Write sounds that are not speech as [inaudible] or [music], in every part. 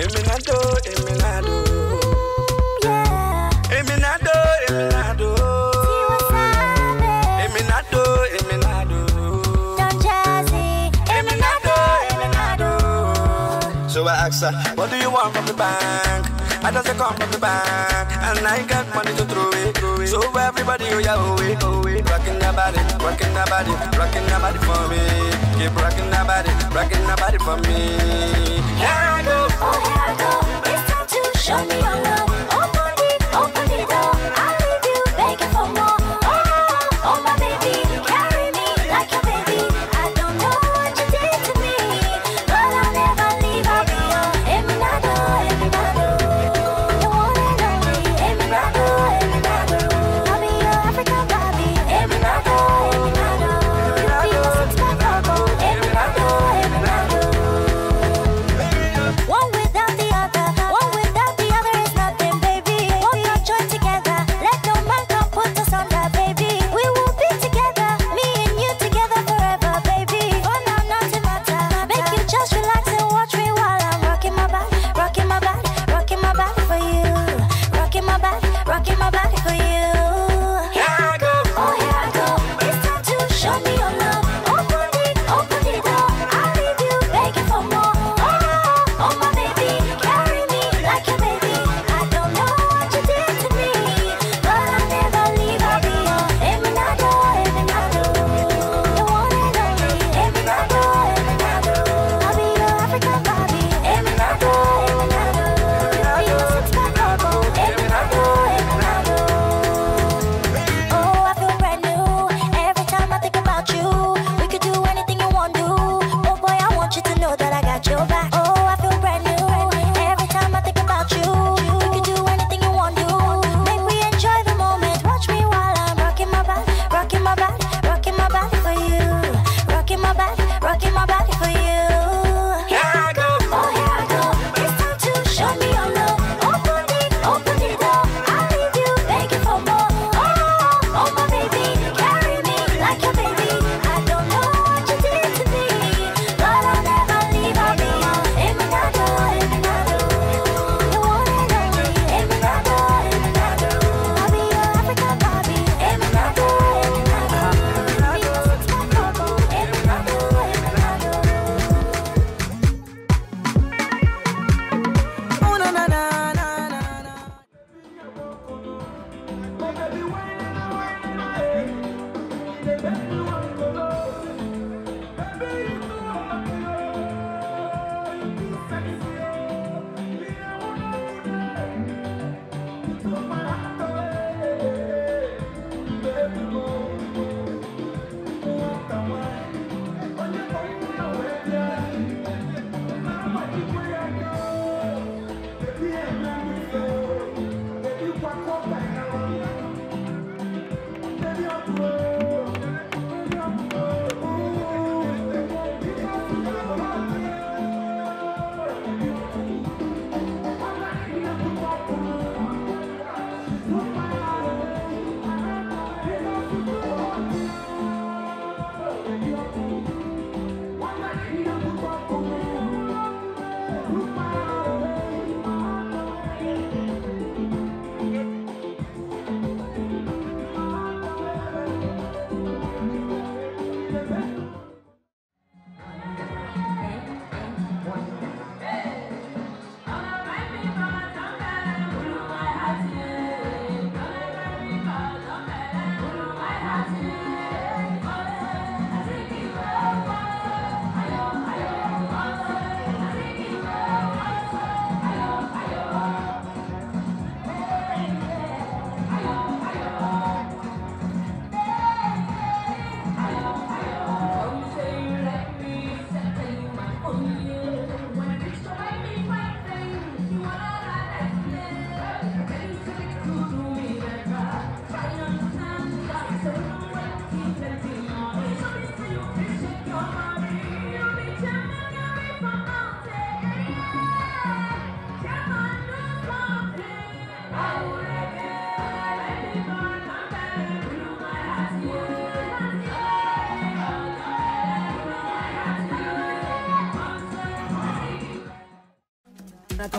Eminado, Eminado, Eminado, Eminado, náà dó. Èmi náà dó, èmi So I ask her, what do you want from the bank? I just come from the bank, and I got money to throw it. Throw it. So everybody, oh yeah, oh it, oh it. Rocking that body, rockin' that body, rockin' that body for me. Keep rockin' that body, rockin' that body for me. Yeah, I go. Oh, here I go. It's time to show me your love.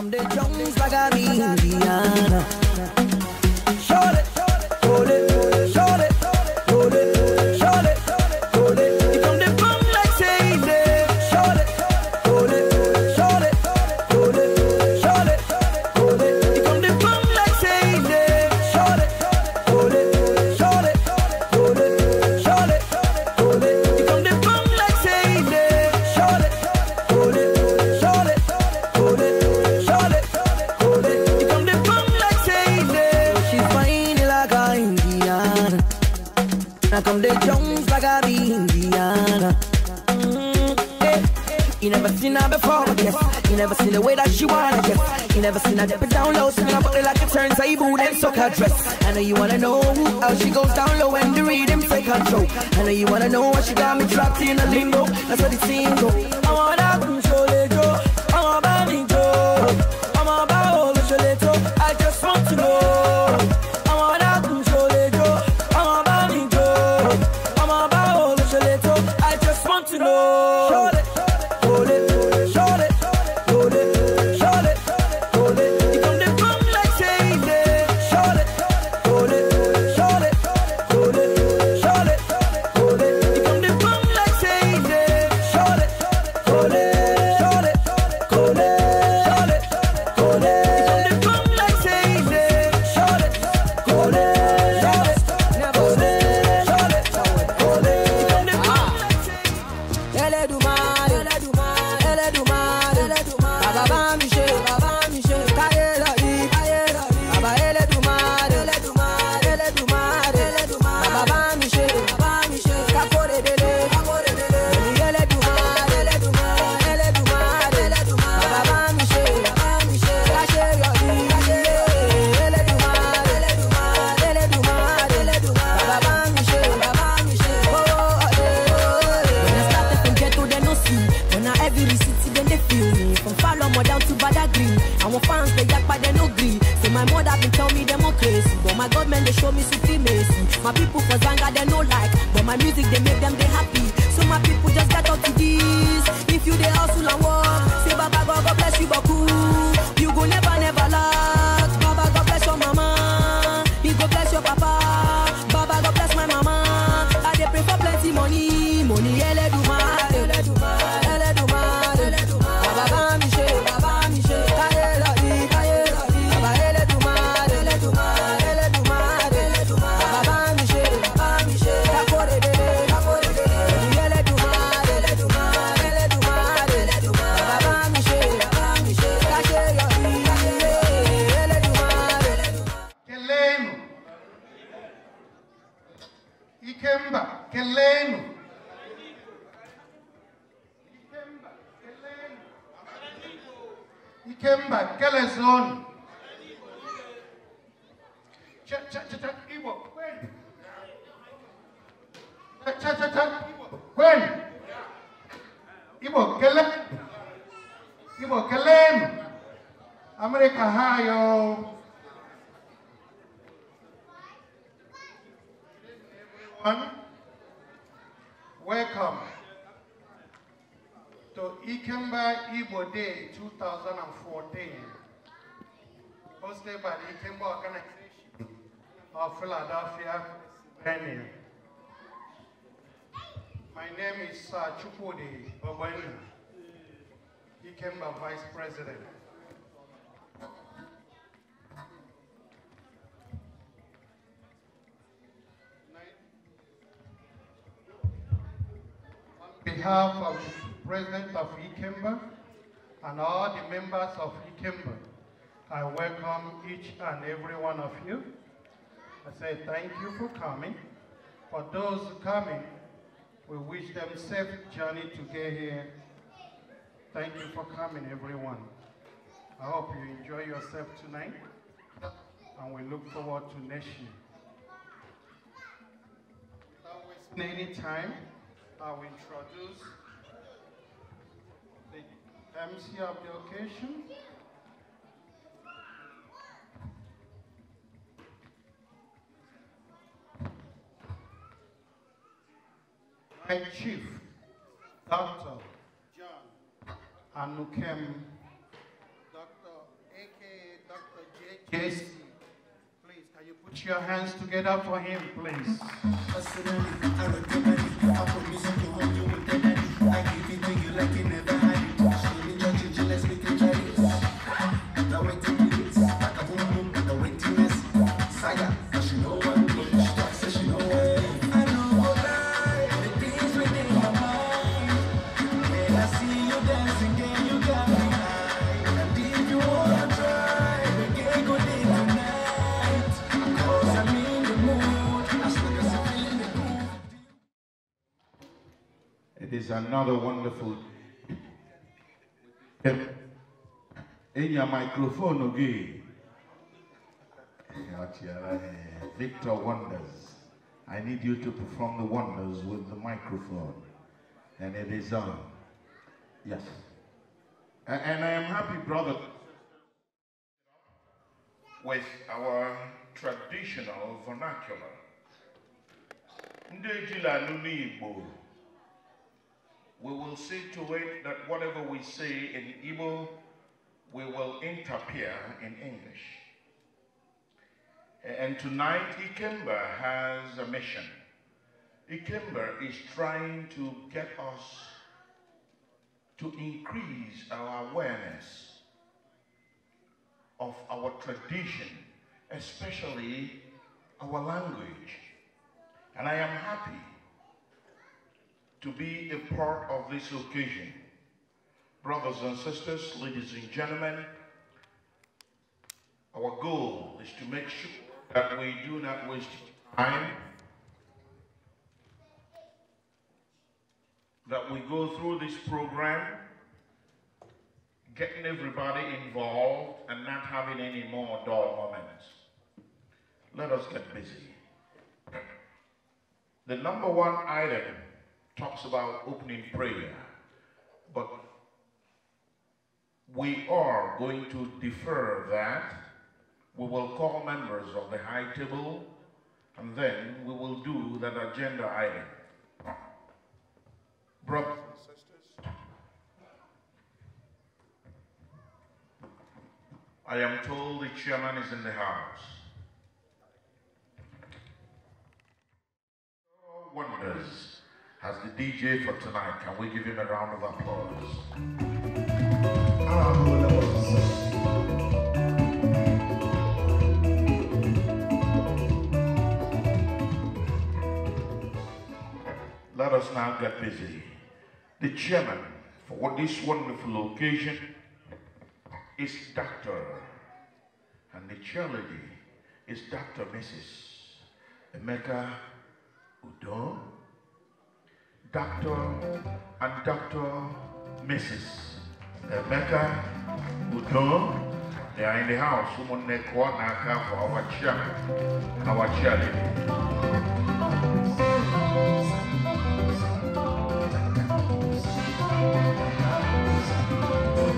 from the drums like I'm Indian. table, and suck her dress. I know you wanna know how she goes down low and the rhythm take control. I know you wanna know why she got me trapped in a limbo. That's what the team I wanna everyone. Welcome to Ikemba Igbo Day 2014, hosted by the Ikemba Organization of Philadelphia, Pennsylvania. My name is uh, Chukwudi Babani, Ikemba Vice President. behalf of President of IKEMBA and all the members of IKEMBA, I welcome each and every one of you. I say thank you for coming. For those coming, we wish them safe journey to get here. Thank you for coming, everyone. I hope you enjoy yourself tonight, and we look forward to next year. Without wasting any time. I will introduce the MC of the occasion. My chief, Dr. John Anukem, Dr. aka Dr. Please, can you put your hands together for him, please? I promise you, you I give it to you like you never. It is another wonderful. In your microphone again. Victor Wonders. I need you to perform the wonders with the microphone. And it is on. Yes. And I am happy, brother, with our traditional vernacular we will see to it that whatever we say in Igbo, we will interpret in English. And tonight, Ikemba has a mission. Ikemba is trying to get us to increase our awareness of our tradition, especially our language. And I am happy to be a part of this occasion. Brothers and sisters, ladies and gentlemen, our goal is to make sure that we do not waste time, that we go through this program, getting everybody involved and not having any more dull moments. Let us get busy. The number one item talks about opening prayer, but we are going to defer that. We will call members of the high table, and then we will do that agenda item. Brothers and sisters, I am told the chairman is in the house. Wonders as the DJ for tonight. Can we give him a round of applause? let us now get busy. The chairman for this wonderful occasion is Dr. And the chair lady is Dr. Mrs. Emeka Udon. Dr. and Dr. Mrs. Emeka Udo. They are in the house. Someone they call Naka for our chair, our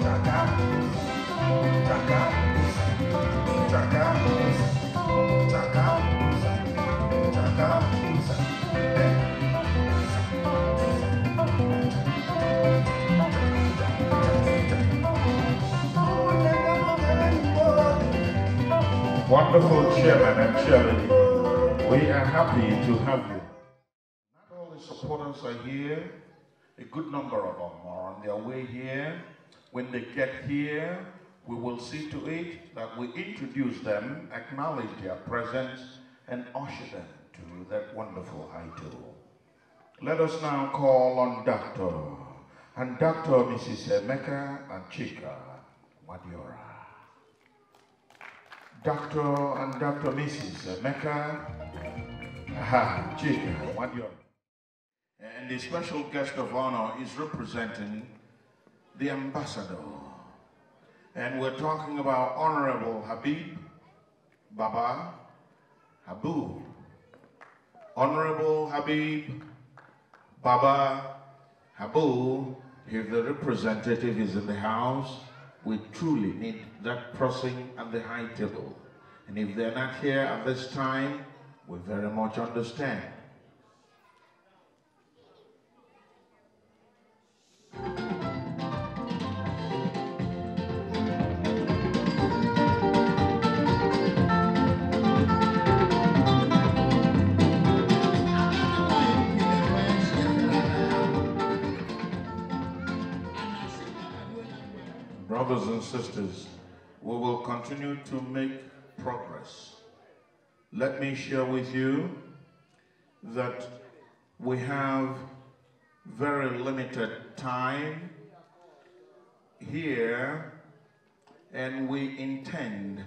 Chaka, Chaka, chaka, chaka. wonderful chairman and chairlady. We are happy to have you. Not all the supporters are here. A good number of them are on their way here. When they get here, we will see to it that we introduce them, acknowledge their presence, and usher them to that wonderful idol. Let us now call on Dr. and Dr. Mrs. Emeka Chika, Madiora. Dr. and Dr. Mrs. Mecca Aha, Chica Wadior. And the special guest of honor is representing the ambassador. And we're talking about Honorable Habib Baba Habu. Honorable Habib Baba Habu, if the representative is in the house, we truly need that crossing at the high table. And if they're not here at this time, we very much understand. brothers and sisters, we will continue to make progress. Let me share with you that we have very limited time here and we intend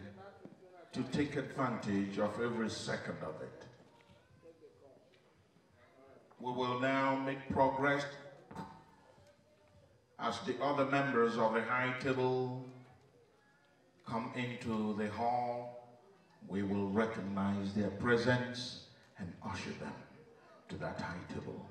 to take advantage of every second of it. We will now make progress as the other members of the high table come into the hall, we will recognize their presence and usher them to that high table.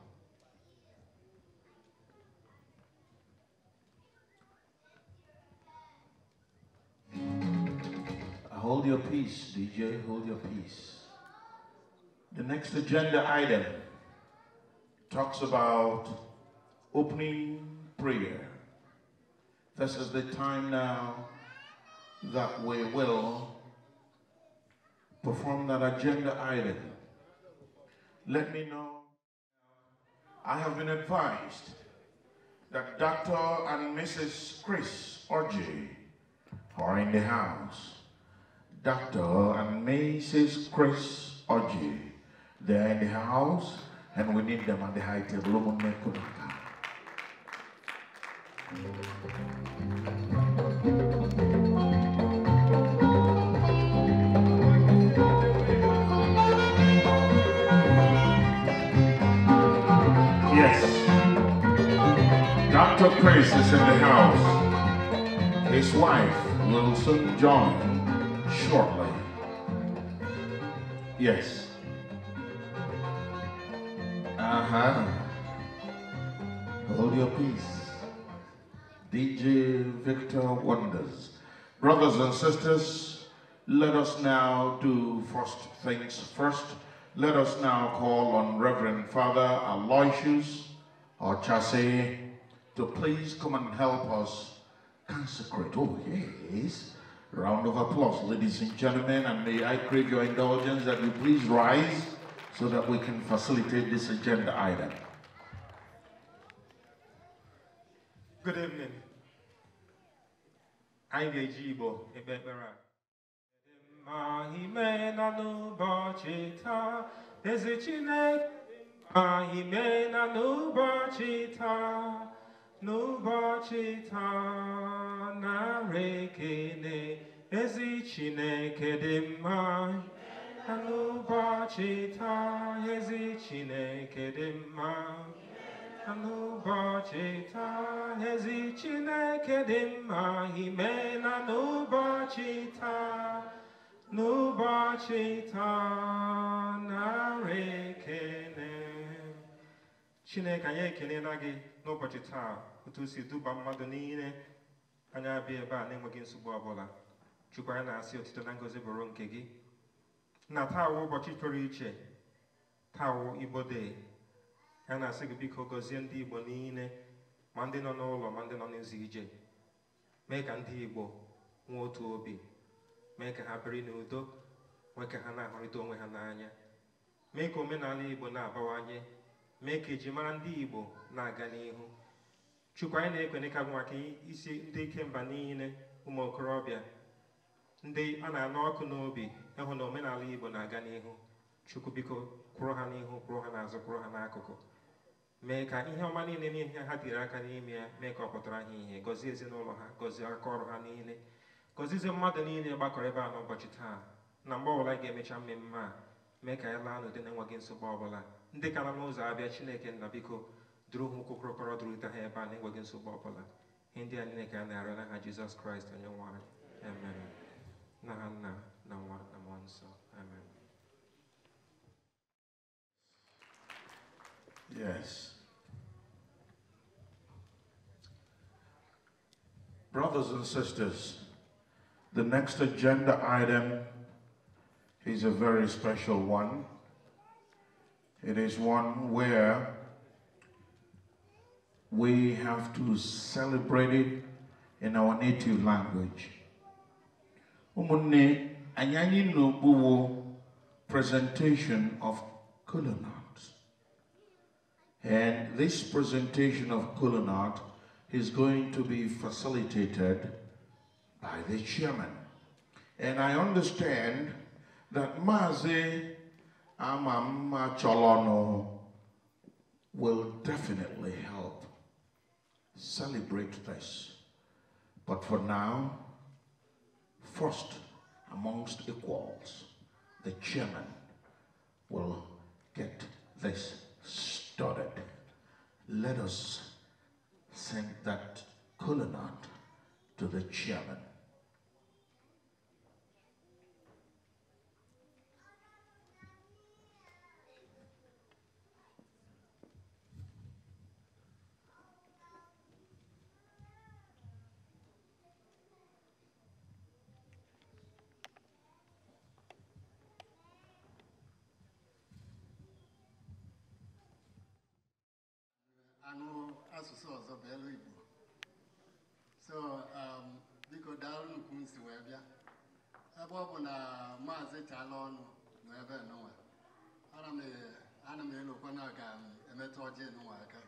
Uh, hold your peace, DJ, hold your peace. The next agenda item talks about opening prayer. This is the time now that we will perform that agenda item. Let me know. I have been advised that Dr. and Mrs. Chris Orji are in the house. Dr. and Mrs. Chris Orji, they're in the house and we need them at the high table. Yes. Dr. Price is in the house. His wife will join shortly. Yes. Uh-huh. Hold your peace. DJ Victor Wonders. Brothers and sisters, let us now do first things first. Let us now call on Reverend Father Aloysius or to please come and help us consecrate. Oh, yes. Round of applause, ladies and gentlemen, and may I crave your indulgence that you please rise so that we can facilitate this agenda item. Good evening anyị ga-eji Igbo ekpe ekpere a ma ime na n'ụbọchị taa eze Chineke ma ime na n'ụbọchị taa n'ụbọchị taa narị ekele ezi Chineke dị mma n'ụbọchị taa ezi Chineke dị mma n'ụbọchị taa ezi Chineke dị mma imela n'ụbọchị taa n'ụbọchị taa narị ekele Chineke anyị ekelela gị n'ụbọchị taa otu si duba mmadụ niile anya abịa ebe a na-enweghị nsogbu ọbụla Chukwu anyị na-asị otito na ngozi bụrụ nke gị na taa ụbọchị pụrụ iche taa wụ Igbo Ha na-asị gị biko gọzie ndị Igbo niile ma ndị nọ n'ụlọ ma ndị nọ n'ezi ije mee ka ndị Igbo nwee otu obi mee ka ha biri n'udo nwee ka ha na-ahụrịta onwe ha n'anya mee ka omenala Igbo na-abawanye mee ka ejimara ndị Igbo na-aga n'ihu Chukwu anyị na-ekwene ka bụ maka isi ndị ikemba niile ụmụ okorobịa ndị a na-anụ ọkụ n'obi ịhụ na omenala Igbo na-aga n'ihu Chukwu biko kwụrụ ha n'ihu kwụrụ ha n'azụ kwụrụ ha n'akụkụ mee ka ihe ọma niile n'ihe ha biri aka n'ime ya mee ka ọ pụtara ha ihe gọzie ezinụlọ ha gọzie aka ọrụ ha niile gọzizie mmadụ niile gbakọrọ ebe a n'ụbọchị taa na mgbe ọbụla ga-emecha mmemme a mee ka anyị laa n'ụdị na-enweghị nsogbu ọbụla ndị ka nọ n'ụzọ abịa chineke nna biko duru ha ụkwụ kụrụkọrọ durute ha ebe a na-enweghị nsogbu ọbụla ihe ndị a niile ka a na na ha jizọs kraịst onye nwa anyị na ha nna na nwa na mmụọ nsọ yes Brothers and sisters, the next agenda item is a very special one. It is one where we have to celebrate it in our native language. Umunne Anyanyi Nobuwo presentation of Kulanat. And this presentation of Kulanat is going to be facilitated by the chairman. And I understand that Mazi Amama Cholono will definitely help celebrate this. But for now, first amongst equals, the chairman will get this started. Let us Sent that colonel to the chairman. asụsụ ọzọ bụ elu Igbo so um, biko daalụ nnukwu nsi si wee bịa ebe ọ bụ na maazị chala ọnụ nọ ebe nụnwa e, ana m elokwa na aga emetụ ọjị nụnwa aka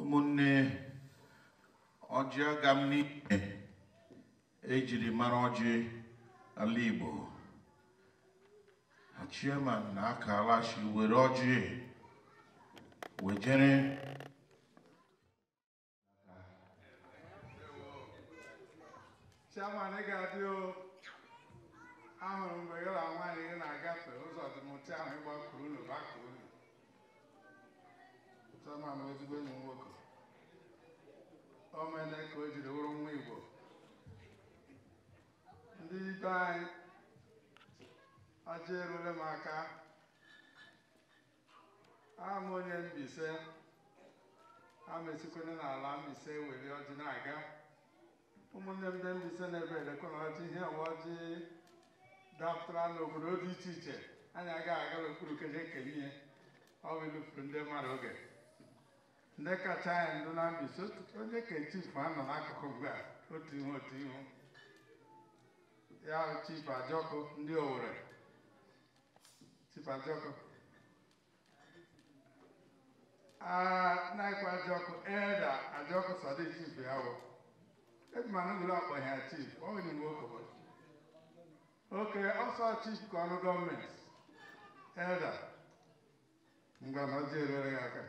ụmụnne ọjị ga m n'ihe ejiri mara ọjị ala Igbo Chairman na-akalachi were ọjị wejere Chairman ị ga-adị ahụrụ mgbe gị na nwaanyị gị na-agafe ụzọ dịmụta ahụ ịgbakwuru ụlọ gbakọ unu Chairman ezigbo enyi nwoke o ka o jiri wụrụ nwa Igbo ndị ibe anyị aja erule m aka ama onye Mbaise amesikwene n'ala Mbaise weli ọjị na-aga ụmụnne m ndị Mbaise na-ebe elekwana ọjị ihe ọwa ọjị dapụtara n'obodo dị iche iche anyị agaghị aga n'okpuru keje ekele ihe ọ bụ ilufuru ndị mmadụ oge ndị kacha anyị ndụ na ise onye ka chifu anọ n'akụkụ mgbe a otu ihe otu ihu ya Chief Ajọkụ ndị Owerri Chief Ajọkụ naikwa Ajọkụ Elda Ajọkụ Sadiq Chief ya wụ eji m anụgụrụ akpọ ya Chief ọ nwere mgbe okobodo oke ọsọ Chief ka ọrụ gọọmenti Elda ngwa na ọjọọ erere ya aka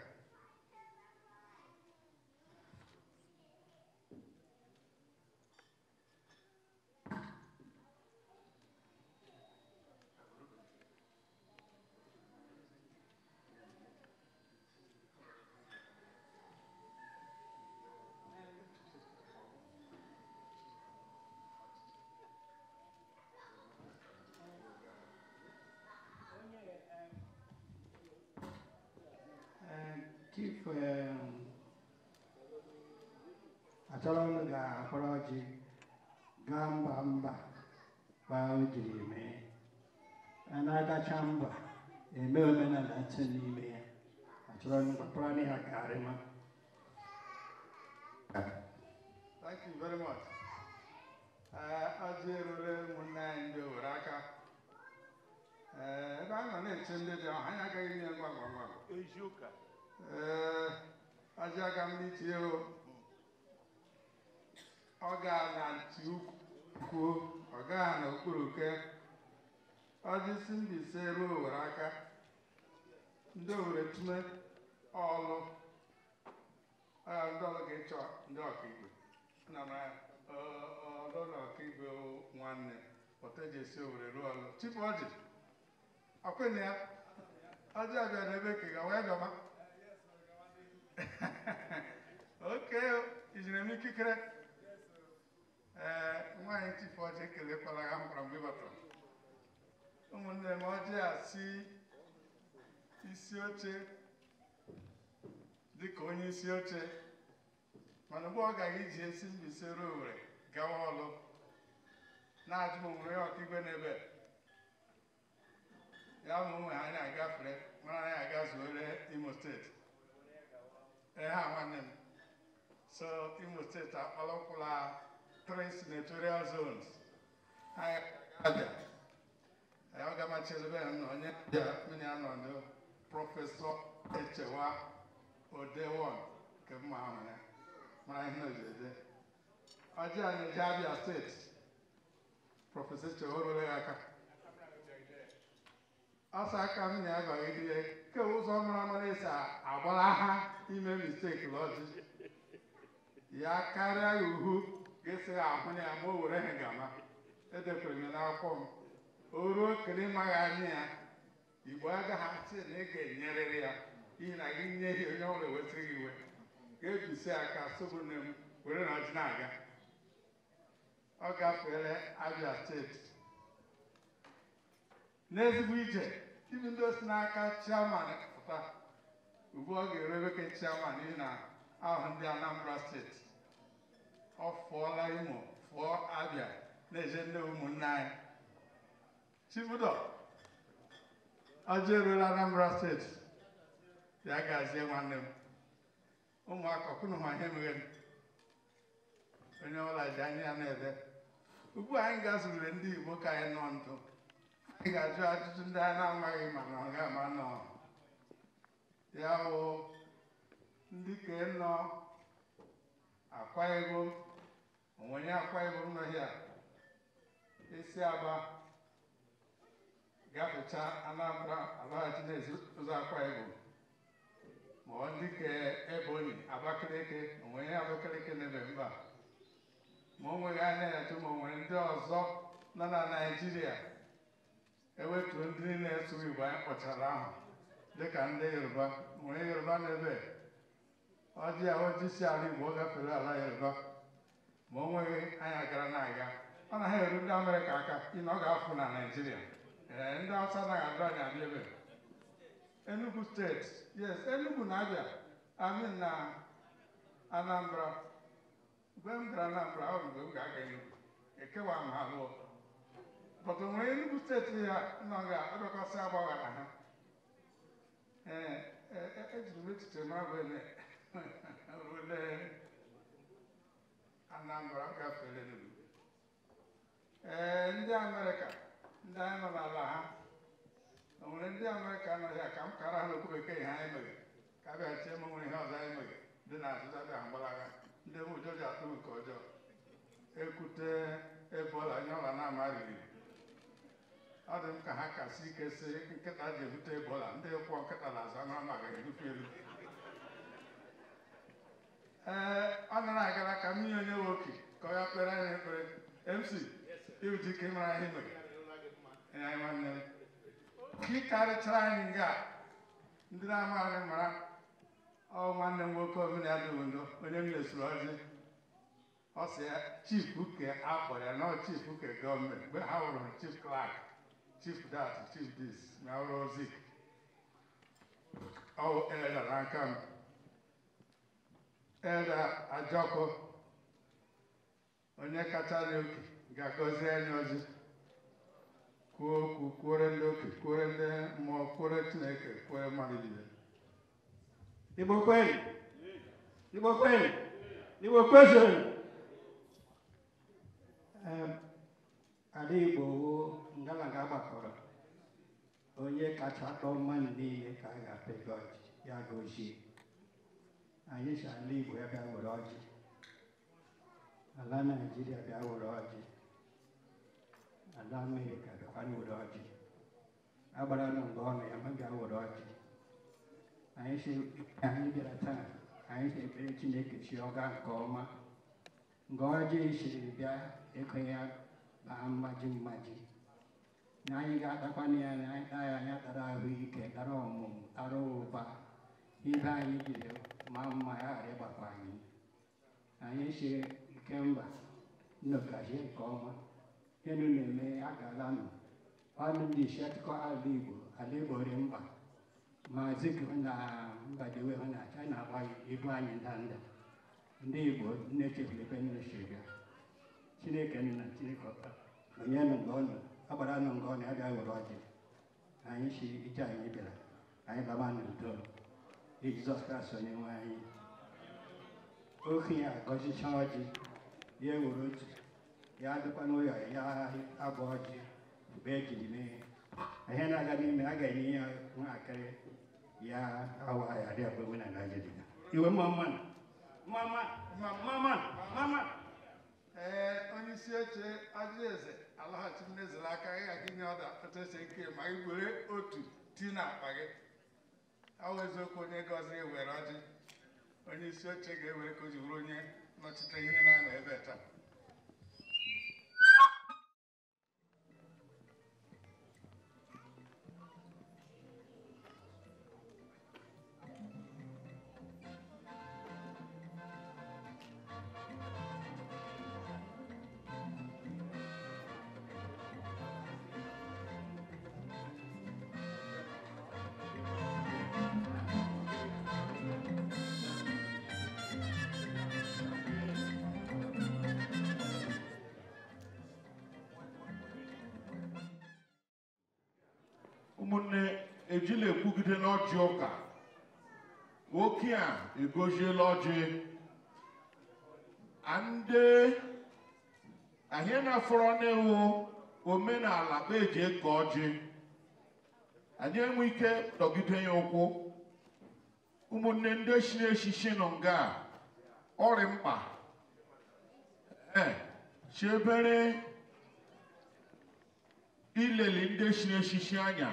achọrọnụ ga-akpọrọ ọjị gaa mba mba gbaa e o jiri mee na-agacha mba eme omenala ntị n'ime ya achọrọnụ gbakpọrọ ya garịma Thank you very much. Ajị erure ụmụnne anyị ndị owere aka ebe a nọ na-eche ndị dị ọha anyị agaghị nye ngwa ngwa ngwa ee ajị uh, aga m n'itinye o ọ ga na nti kwuo ọ gaa n'okpuru ke ọjịsi Mbaise ruo Owere aka ndị Owere tume ọlụ ndị ọlụ ga-echọ ndị ọkaikpe nna m ọlụ na ọkaikpe nwanne Otejiesi Owere ruo ọlụ Chifu Ọjị ọkwene ya ọjị abịa n'ebe kega wee gọma [laughs] oke ijiri m ikikere ee nwaanyị Chifu ekelekwala ha mkpara mgbe ịbatara ụmụnne m ọjị a si isi oche dịka onye isi oche mana mgbe ọ gaghị iji esi Mbaise ruo Owere gawa ọlụ na-ajụ m onwe ya ọkaigwe n'ebe ya ma onwe ha anyị agafere mara anyị aga zuore Imo steeti ee ha nwanne m so Imo steeti akpala three senatorial zones aga m achebe ya na onye mmiri anọdụ prọfesọ echewa odewon nke mma ha ya mara ihe ojede ọjị anyị ji abịa steeti prọfesọ echewa ya aka ọsọ aka m na-agọghị dị ya ke ụzọ mara esi agbara ha ime misteki ji ya karịa ya uhu ga-esi ahụ na ya ma o were ha ngama edekwere m n'akwụkwọ m o ruo kele ịmaghị anya ya igbo agaghị achị na ị ga-enyerịrị ya n'ihi na gị nye ya onye ọbụla wetara gị iwe ga ebisi aka sobu nne m were na ọjị na-aga ọ gafere abia steeti n'ezigbo ije ibi ndị osi n'aka chairman pụta ugbu ọ ga-ereweke chiaman n'ihi na ahụ ndị anambra steeti ọ fụọla imo fụọ abịa na-eje ndị ụmụnne anyị chibudo ọjọ eruola Anambra steeti ya gazie nwanne m ụmụaka ọkụnụha ihe m. onye ọbụla ji anya ya na-ede ugbu anyị ga ndị Igbo ka anyị nọ ndụ anyị ga-ajụ ajụjụ ndị anyị na-amaghị ma na ọ ga-ama nọ ya bụ ndị ka nọ akwa onwenye akwa Ibom nọ hịa aba gafecha Anambra alaghachi n'ezi ụzọ akwa Ibom ma ọ dịka Ebonyi Abakaliki onwenye Abakaliki na eme mba ma o nweghị anya ya tụ ma o nwere ndị ọzọ nọ na Naijiria ewetuo ndị na-eso Igbo anyị kpọchara ahụ dịka ndị Yoruba nwere Yoruba na ebe ọ dị ya onye isi ala Igbo gafere ala ya Yoruba ma o nweghị anya gara na-aga ọ na ha eru ndị Amerịka aka ị na ọ ga-afụ na Naịjirịa ee ndị Hausa anaghị adụ anya abịa ebe Enugu steeti yes Enugu na Abịa amin na Anambra mgbe m gara Anambra ọ mgbe m ga-aga Enugu ekewa m ha lụọ bọtụ nwere Enugu steeti ya nọ ga-adọkọsị agbagha na ha ee e, e, e, ejiri m echiche mara bụ eme rue Anambra m gafere Enugu ee ndị e, Amerịka ndị anyị nọ n'ala ha o nwere ndị Amerịka nọ ya ka kara ha n'okwu bekee ihe anyị mere ka a bịaghachie m nwere ihe ọzọ anyị mere dị na azụzabịa mgbalaga ndị m ụjọ ji atụ nke ọjọọ ekwute ebola nye ọla na ama riri ọ dị m ka ha kasị ike si nkịta ji ebute ebola ndị e kwụọ nkịta na azụ anụ amaghị erufe elu. ee ọ nọrọ agara ka mmiri onye nwoke ka ọ ya kpere anyị ekpere mc iwudike mara anyị nwere nwanne m ka karịchara anyị nga ndị na-ama anyị mara ọ nwanne m nwoke omenala onye m lesoro ọjị ọ sị ya chief uke akpọrọ ya nọ ọ chief uke gọọmenti mgbe ha wụrụ chief clark chief dat chief dis na ọrụ ozi ọ eledara aka m Eda Ajọkọ onye kachara oke ga-agọzi anyị ọzọ kwuo okwu ndị oke kwuore ndị mmụọ kwuore Chineke kwuore mmadụ niile Igbo Igbo kweli Igbo gbakọrọ onye kacha atọ mmadụ niile ka a ga-apịgọ ya gozie anyị si ala Igbo ya bịa were ọjị ala Naịjirịa bịa were ọjị ala Amerịka bịakwa were ọjị agbara nụ mgbe ọnụ ya ma bịa were ọjị anyị anyị bịara taa anyị si ekpere Chineke chi ọga nke ọma nga ọjị siri bịa ịkụ ya baa mmaji mmaji na anyị ga-atakwana ya na anyị taa ya anya tara ahụike tara ọmụmụ tara ụba ibe anyị jide ma mma ya ghara ịgbakwa anyị anyị sie nke mba nnogazie nke ọma enu na-eme ya galanụ ọnụ ndị ala igbo ala igbo ri mba maazị gị na mbadiwe hụ na china ibu anyị ndanda ndị igbo nne chefulebe nne shiga chineke nna chineke ọta onye nụ mgbe ọnụ agbara nụ mgbe ọnụ ya bịa were ọjị anyị si ije anyị bịara anyị laba n'udo Jizọs Kraịst onye nwe anyị okenye agọzicha ọjị ya ewere otu ya adịkwa n'ụlọ ya abụ ọjị mgbe ejiri mee ihe na-aga n'ime a ga-enye ya nwatakịrị ya awa ya rịa bụ na Naịjirịa iwe mama mama mama mama ee onye isi oche ajụeze alaghachi mmeziri aka gị aga inye ọda otu nke ike ma ị were otu ti na akpa gị awụ eziokwu onye gọzi were ọjị onye isi oche ga-ewere ka o ji bụrụ onye nọchite ihe na-anọ ebe taa eji ejila ekwugide n'ọjị ụka oke a egoziela ọjị ndị ahịa na-afọrọ n'iwu omenala bụ eji eke ọjị anyị enwe ike dọgide ya ụkwụ ụmụnne ndị si n'eshishi nọ nga ọrị mkpa e chebere ileli ndị si n'eshishi anya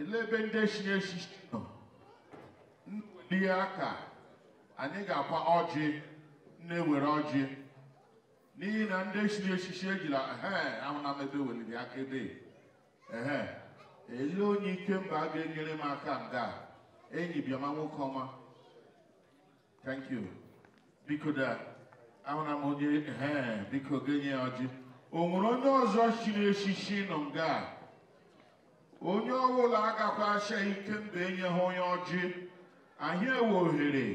ele ebe ndị echi echichi nọ nwelie aka anyị ga akwa ọjị na-ewere ọjị n'ihi na ndị echiri echichi ejila ee ahụna m weliri aka ebe ee ele onye mba a ga-enyere m aka nga enyi bịama nwoke ọma thank you biko da ahụna m onye ee biko ga-enye ya ọjị o nwere onye ọzọ chiri echichi nọ nga onye ọbụla agakwa asha ike mba enye ha onye ọjị anyị ewe ohere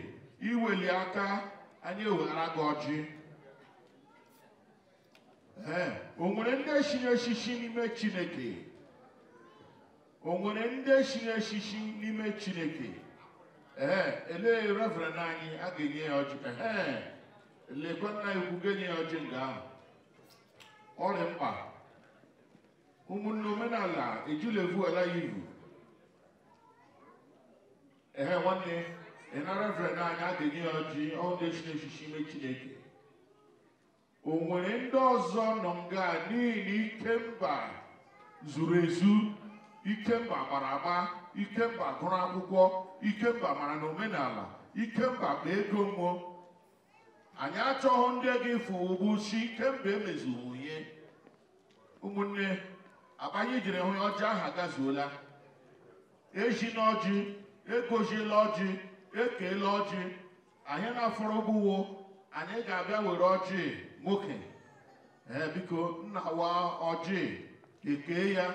iweli aka anyị eweghara gị ọjị ee o nwere ndị echiri shishi n'ime chineke o nwere ndị echiri shishi n'ime chineke ee elee reverend anyị a ga-enye ya ọjị ee elekwa nna egwu ga-enye ya ọjị nga ahụ ọrịa mkpa ụmụnne omenala ejulevu ala ya ivu ehe nwanne ịnarevren anyị adịghị ọjị ọnụ echiri echichi ime chineke o nwere ndị ọzọ nọ nga n'ihi na ikemba zuru ezu ikemba gbara agba ikemba gụrụ akwụkwọ ikemba mara na omenala ikemba kpa ego mmụọ anyị achọghị ndị ga-efu ụgbụ si emezu emezuwunye ụmụnne Abanye jiri hụ ya ọjị ahụ agazuola ejina e ọjị egoziela ọjị ekeela ọjị anyị na-afọrọ ụgwọ anyị ga-abịa were ọjị nwoke ee biko nna wa ọjị ekee ya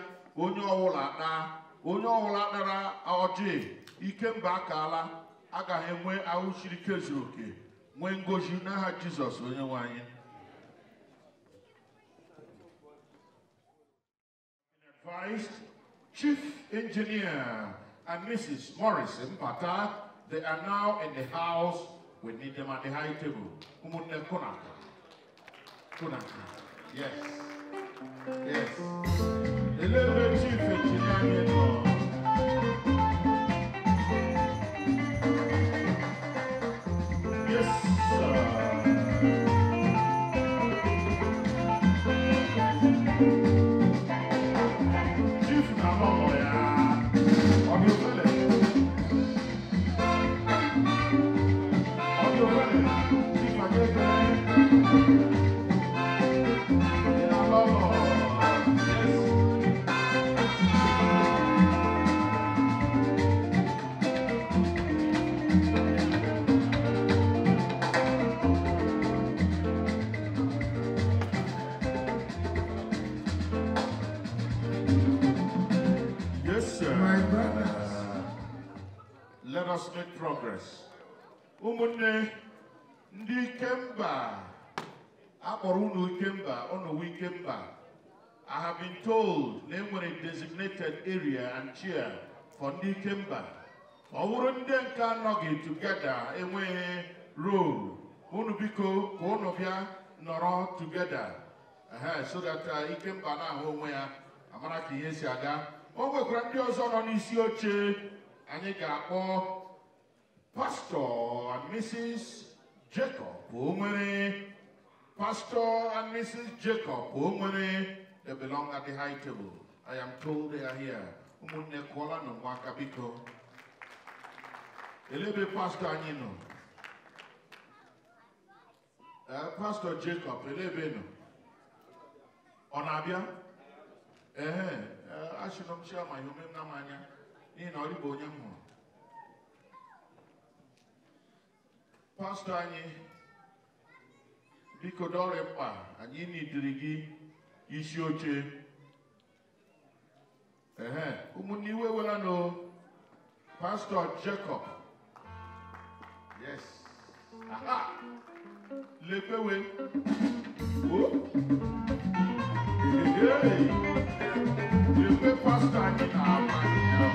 onye ọwụla taa onye ọwụla tara ọjị ikemba akaala agaghị enwe ahụ siri ike zuru oke nwee ngozi n'aha jizọs onye nwe anyị Vice Chief Engineer and Mrs. Morrison, Mpata, they are now in the house. We need them at the high table. Umunne Kunaka. Kunaka. Yes. Yes. The level chief engineer. let us make progress ụmụnne ndị ikemba akpọrọ ụnụ ikemba ọnọwo ikemba i have been told na enwere designated area and chair for ndị ikemba ọ bụrụ ndị nke anọghị together enweghị role ụnụ biko ka ụnụ bịa nọrọ together so that uh, ikemba na-ahụ onwe ya amara ka ihe si aga o nwekwara ndị ọzọ nọ n'isi oche anyị ga-akpọ Pastor and Mrs. Jacob Onwere Pastor and Mrs. Jacob Onwere they belong at the high table. I am told they are here. Ụmụnne kụọla na ụmụaka biko. Elebe pastor anyị nọ. Eh, pastor Jacob elebe nọ. Ọ na-abịa? Ee, achịnọ m chiama ihe na m anya. n'ihi na ọ dịbụ onye m hụrụ pastọ anyị biko dọrị mkpa anyị n'idiri gị isi oche ehe ụmụnne iwe wela nụ pastọ jacob yes aha lepewe o lepe pastọ anyị na-ama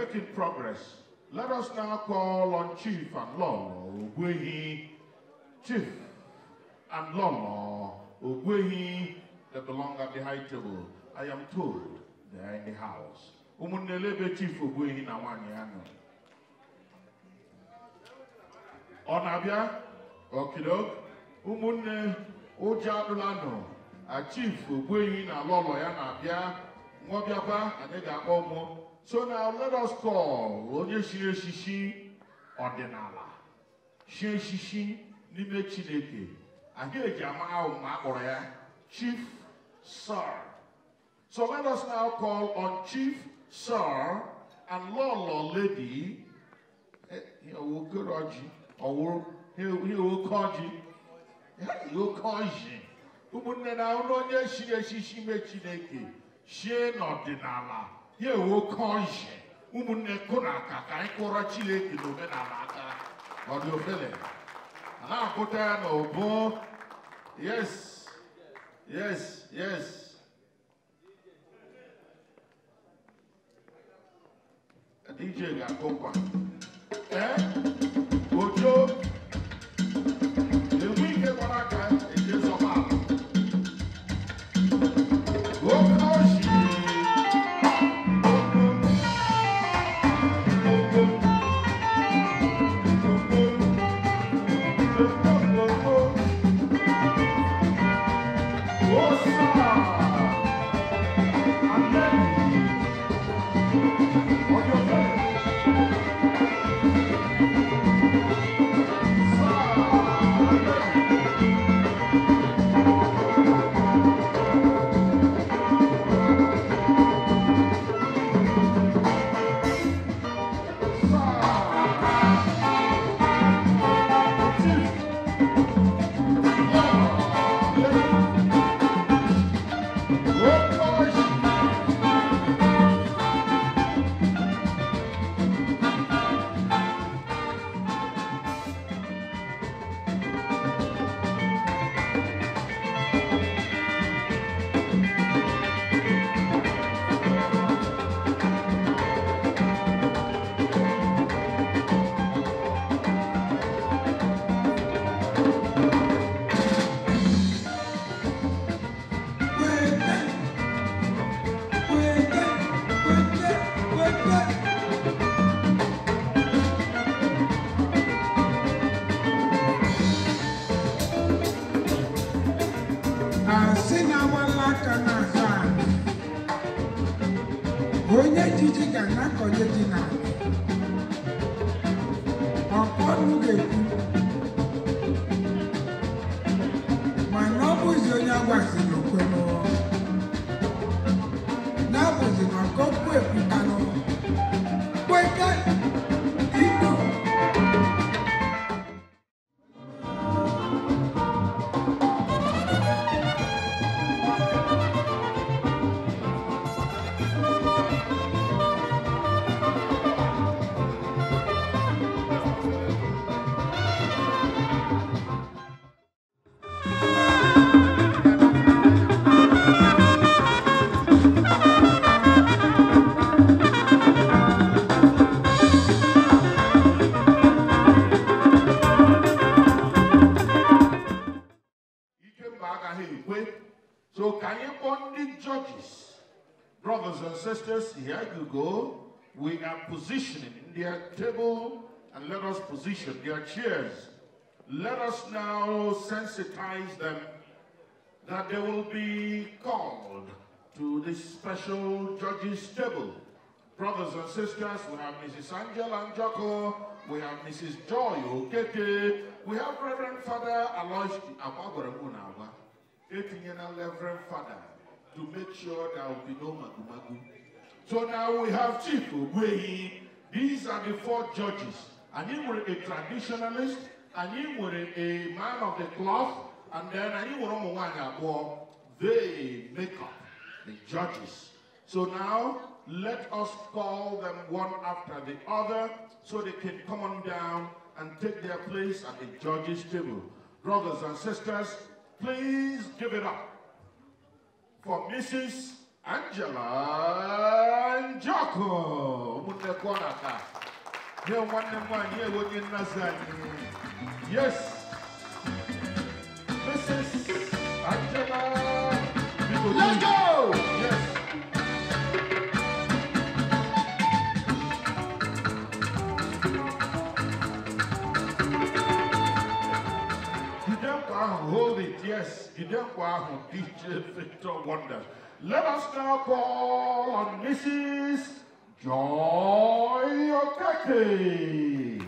making progress. Let us now call on Chief and Lolo Ogwehi. Chief and Lolo Ogwehi, that belong at the high table. I am told they are in the house. Umunelebe Chief Ogwehi na wanyano. Onabia, okidok, umunne ujadulano. A Chief Ogwehi na Lolo ya na abia. Mwabia pa, anega so now let us call onye chiri echichi ọdịnala chi echichi n'ime Chineke anyị eji ama ahụ Chief Sir. So let us now call on Chief Sir and Lolo Lady eh, He will call Ogoroji ọwụrụ ihe oke ọjị ya ihe oke ọjị ụmụnne na onye chiri echichi ime Chineke chie n'ọdịnala ya ewe oke ọhịa ụmụnne kụ na aka ka anyị e kụra chineke na omenala aka ọdịofele a na-akụta ya na ụbụ yes yes yes DJ ga-akụ nkwa ee eh? ojo George. positioning in their table and let us position their chairs. Let us now sensitize them that they will be called to this special judge's table. Brothers and sisters, we have Mrs. Angela Anjoko, we have Mrs. Joy Okeke, we have Reverend Father Alois Abagwaremunawa, Etinyana Reverend Father, to make sure there will be no magumagu. So now we have Chief Wehi. These are the four judges. And he was a traditionalist, and he was a man of the cloth, and then and he one a They make up the judges. So now let us call them one after the other so they can come on down and take their place at the judges' table. Brothers and sisters, please give it up for Mrs. Angela Njoko ụmụnnekwu ọnaka nye nwanne m nwaanyị ewe onye nnazi anyị yes Mrs. Angela Let's go! Yes. Jide mkpa ahụ, hold it, yes. You don't Jide mkpa ahụ, DJ Victor Wonder. Let us now call on Mrs. Joy Okeke.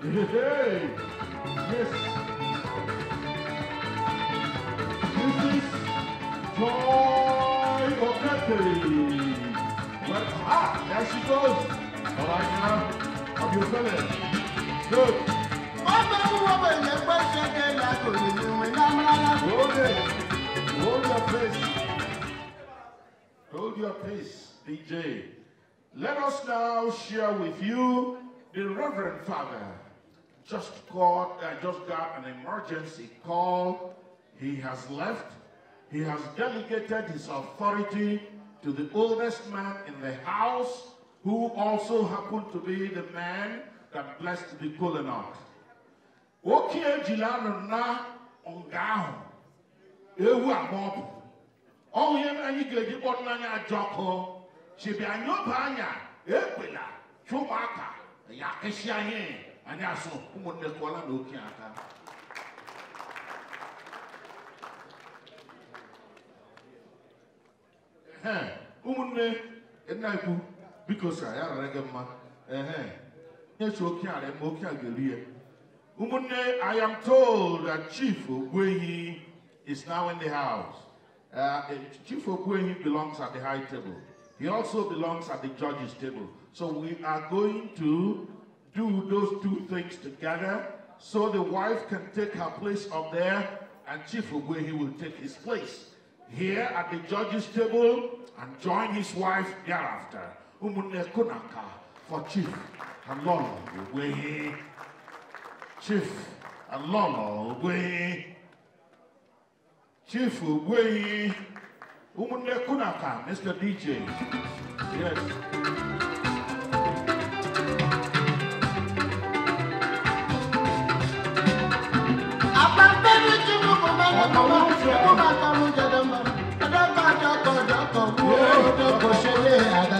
Hey, yes. is Joy Okeke. Well, ah, there she goes. All right now. Hold your peace. Hold your place, DJ. Let us now share with you the Reverend Father just got, just got an emergency call. He has left. He has delegated his authority to the oldest man in the house, who also happened to be the man that blessed the colonel. Okie jilanụ na nga ewu agba ọ bụ ọnwụ ihe anyi joko, ga-eji kpọrọ n'anya ajọ ọkụ ekwela chi ya kịsịa ihe anyị asụ ụmụnne kụọla na oke aka ụmụnne nna ikwu because I am a regular, mma ehe nyechi oke ala ma oke i am told that chief ogbuehi is now in the house uh, eh, chief ogbuehi belongs at the high table he also belongs at the judges table so we are going to do those two things together so the wife can take her place up there and Chief Ogwehi will take his place here at the judge's table and join his wife thereafter. ụmụnne kunaka for chief alolo ogwehi chief alolo ogwehi chief ogwehi ụmụnne kunaka mr dj yes. Adamba, Adamba, Adamba, Adamba, Adamba, Adamba, Adamba, Adamba, Adamba, Adamba,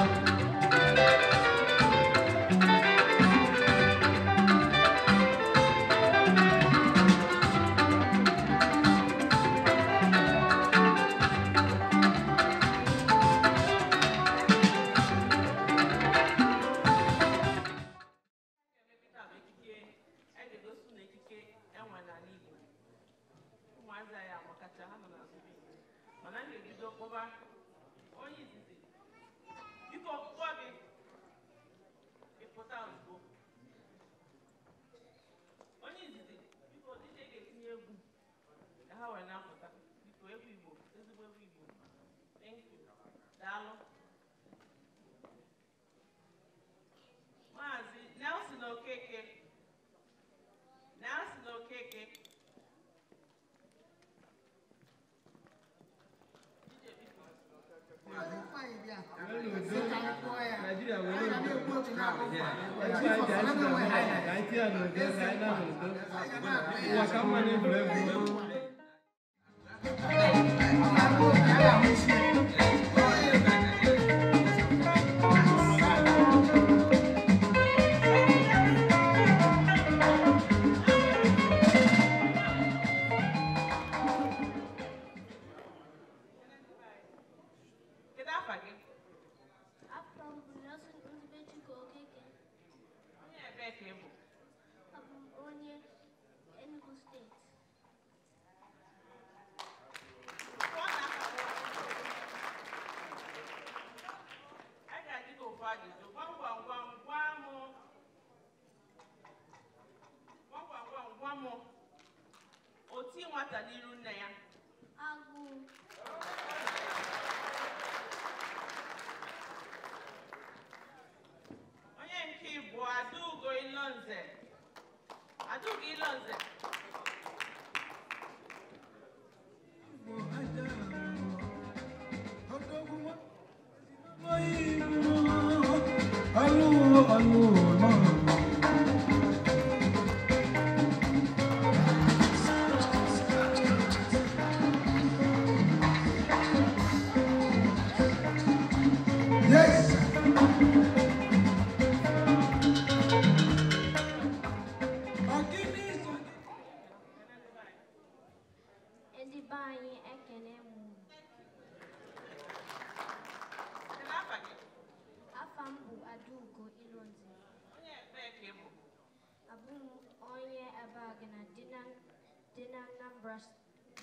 dinang numbers,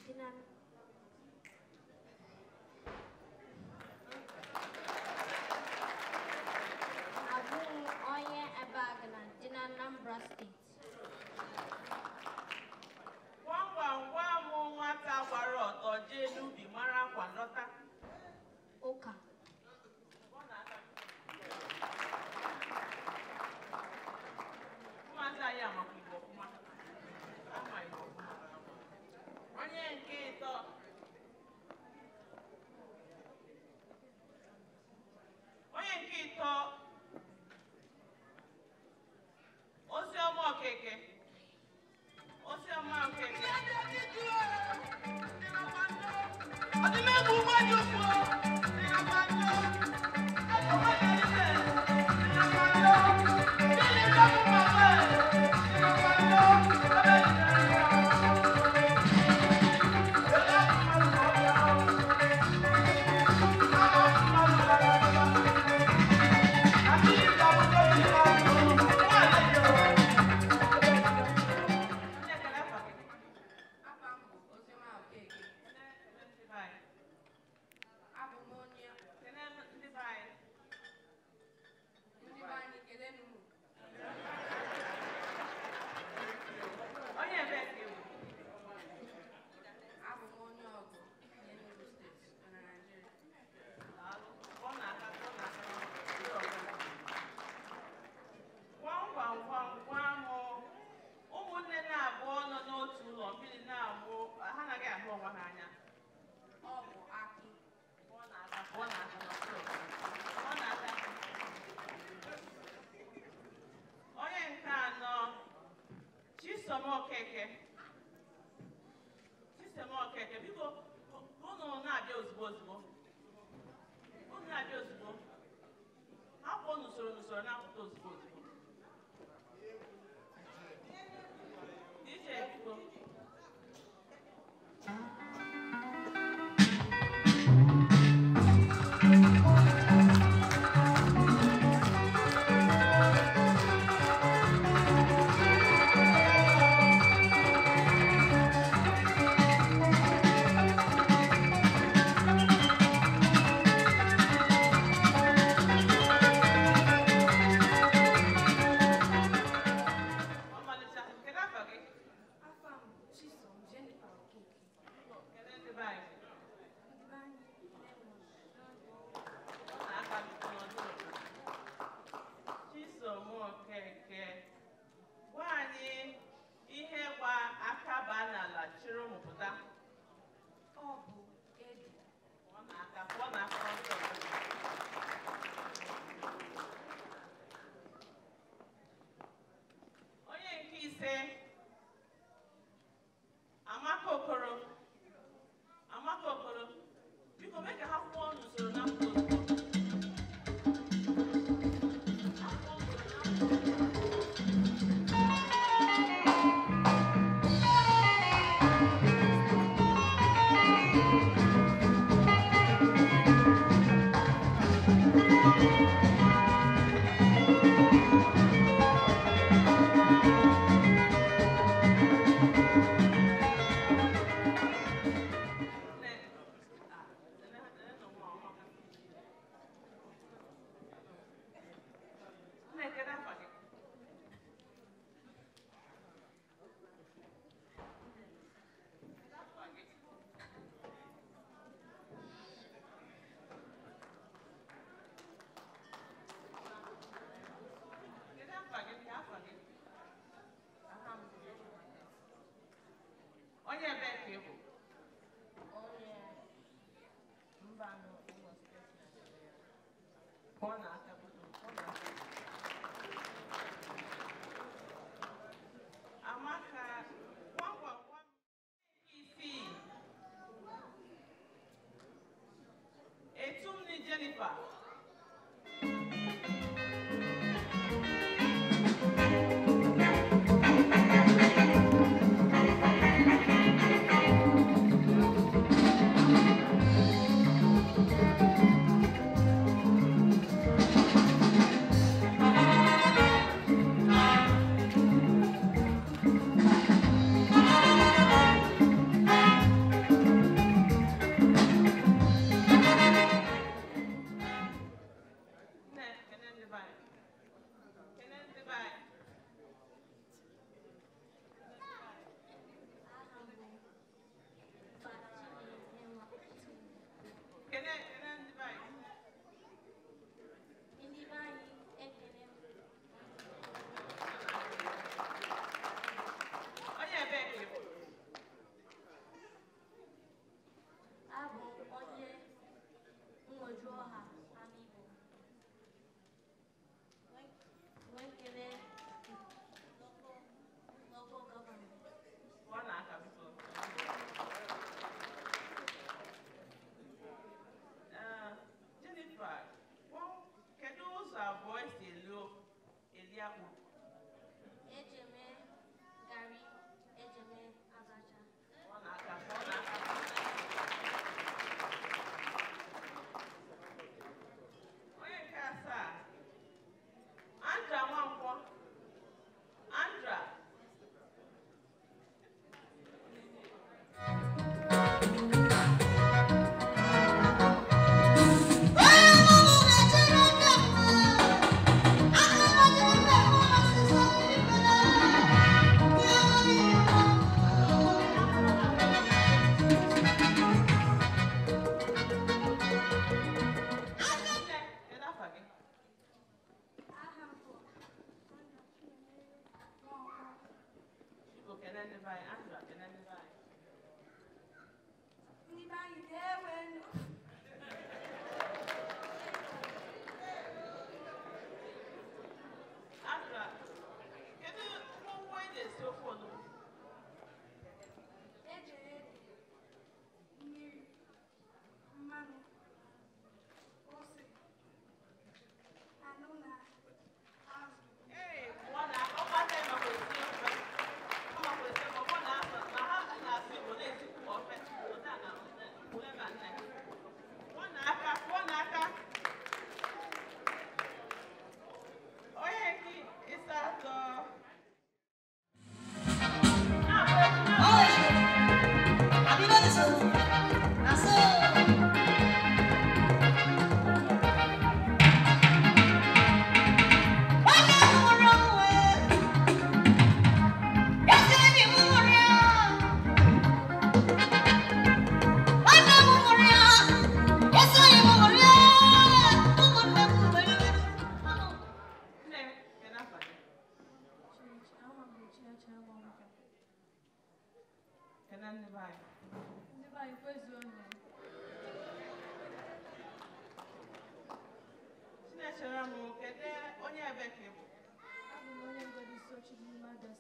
dinang estamos Hornath. Amaka, one one one APC. Etumni Jennifer.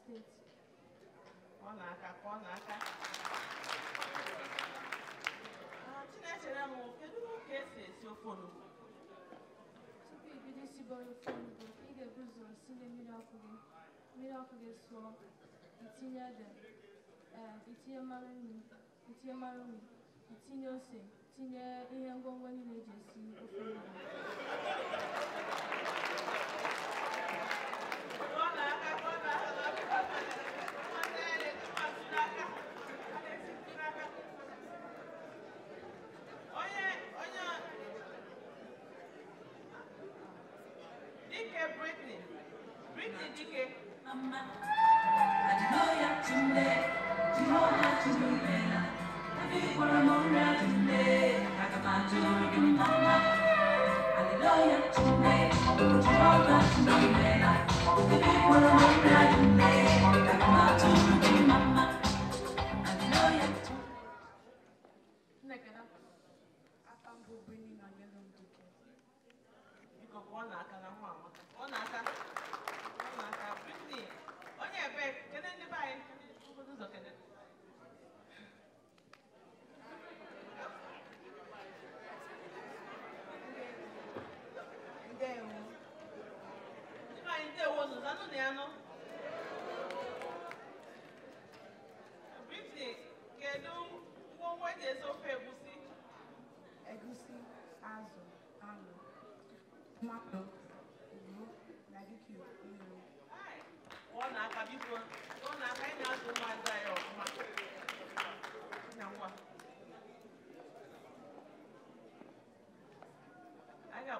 Presidente. Pọnaka, pọnaka. Chinechere m kedu ka esi esi ofe onugbu? Tupu ibido isibe ofe onugbu, ị ga-ebu ụzọ sinye mmiri ọkụ gị. Mmiri ọkụ gị sụọ, itinye ede, itinye mmanụ nri, itinye mmanụ nri, itinye ose, tinye ihe ngwongwo niile eji esi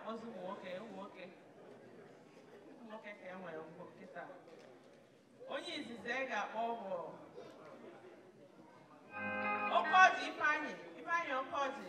akpọzi ụmụ nwoke ụmụ nwoke ụmụ nwoke ka e nwere mgbo nkịta onye izizi e ga-akpọ bụ okeọji ifeanyị ifeanyị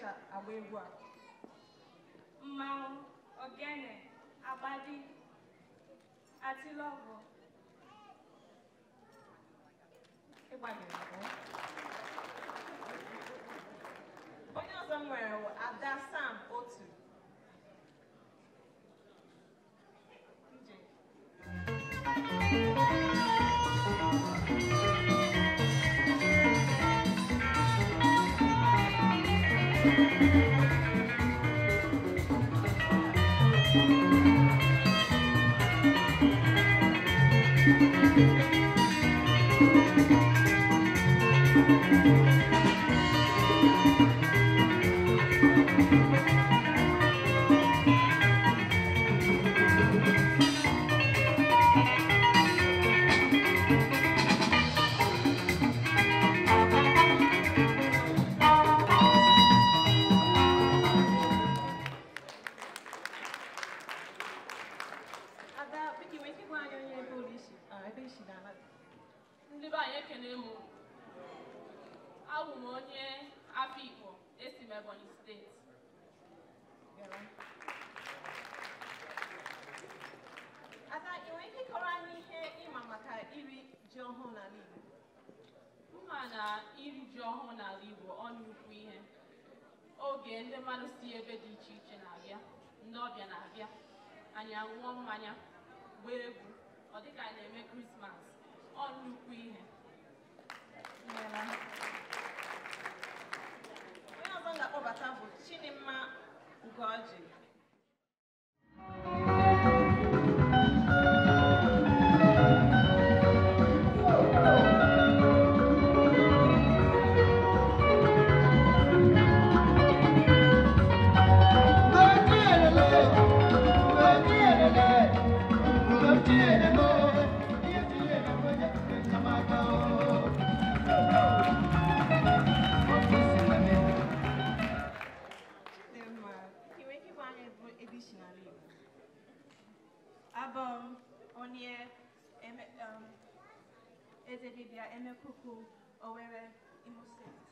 eji agba egwu a mmanwụ ogene agbadi atilọgwụ ịgbanyere onye ọzọ m nwere Ada Sam otu Thank you. ya ṅụọ mmanya gbaa egwu ọ dị ka na-eme krismas ọ nnukwu ihe ezebibia emekuku Owerri, Imo State.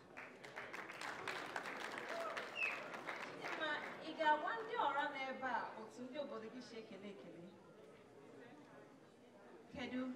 Kedu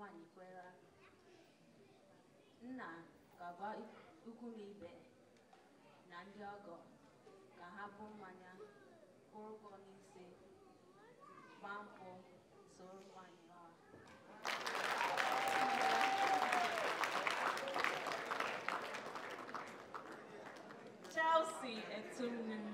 nwaanyị kwere nna ga-agwa ikwu na ibe na ndị ọgọ ka ha bụ mmanya kwụrụgo n'ise gbaa mpụ soro nwaanyị ọha Chelsea Etumnime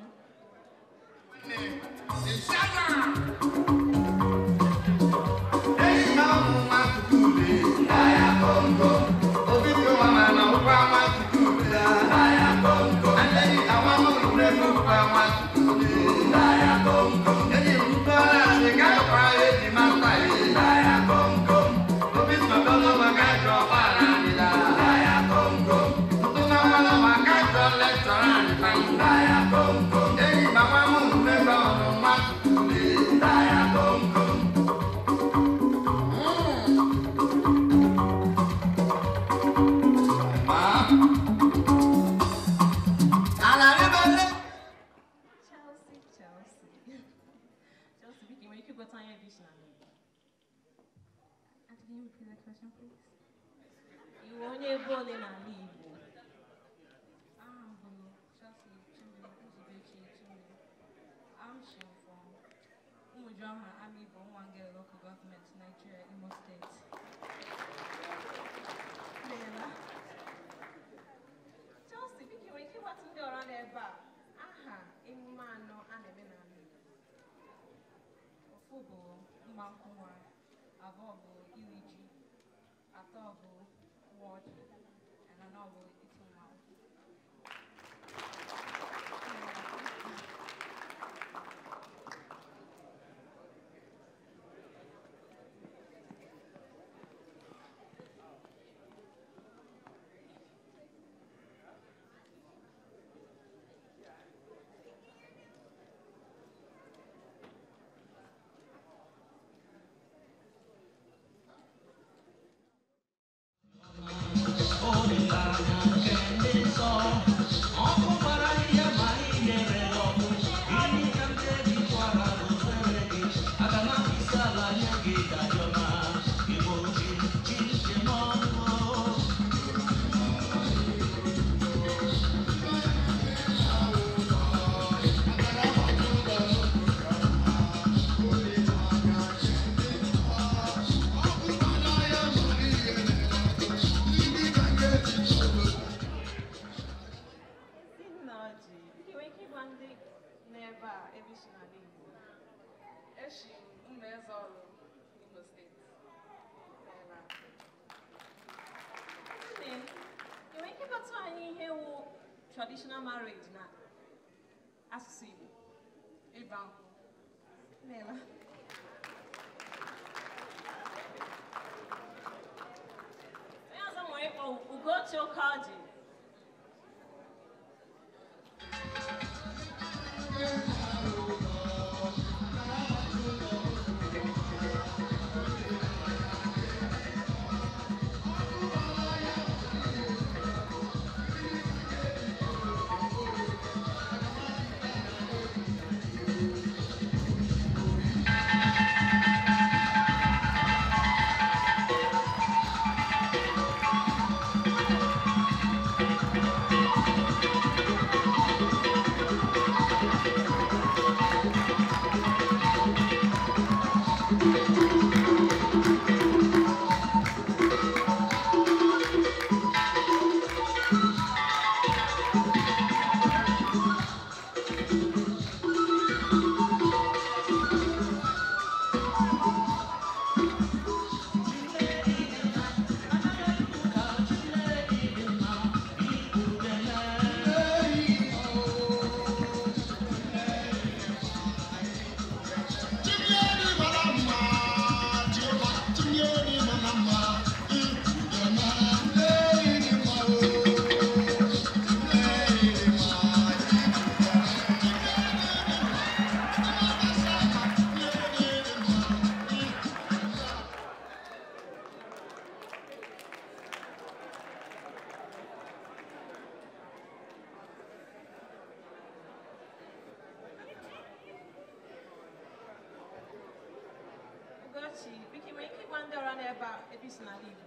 n'ebe a ebe isi n'ala Igbo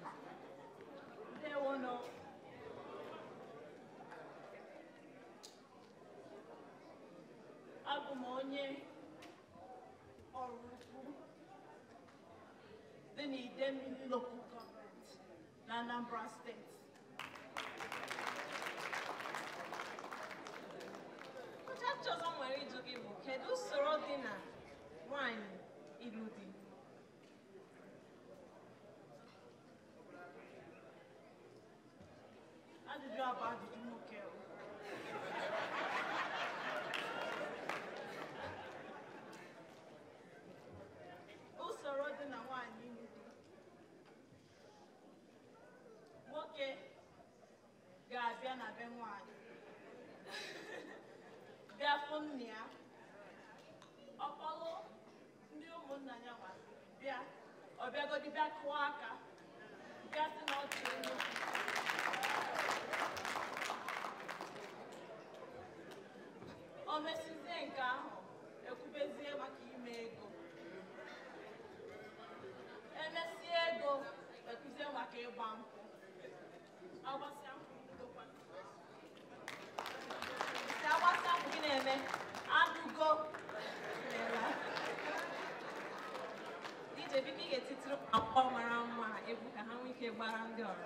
Local Government na Anambra Steeti ọchọchọ ọzọ nwere ịjụ gị bụ kedu usoro dị na nwanyị ilu dị Jabá de Inuquel. Usoro dị na nwaanyị ịlụ Nwoke ga-abịa na be nwaanyị. Bịa fụ nne ya. Ọkpọlụ ndị ụmụnna ya nwa bịa. Ọ bịagodi bịa kụọ aka. Bịa sị na ọ dị elu. o mesizie nke ahụ ekwubezie maka ime ego emesie ego ekwuzie maka ịgba nkwụ agbasịa nkwụ si agbasịa gị na-eme anụgo ije biko ị ga-etitiri akpọ mara mma ebu ka ha nwee ike gbara ndị ọrụ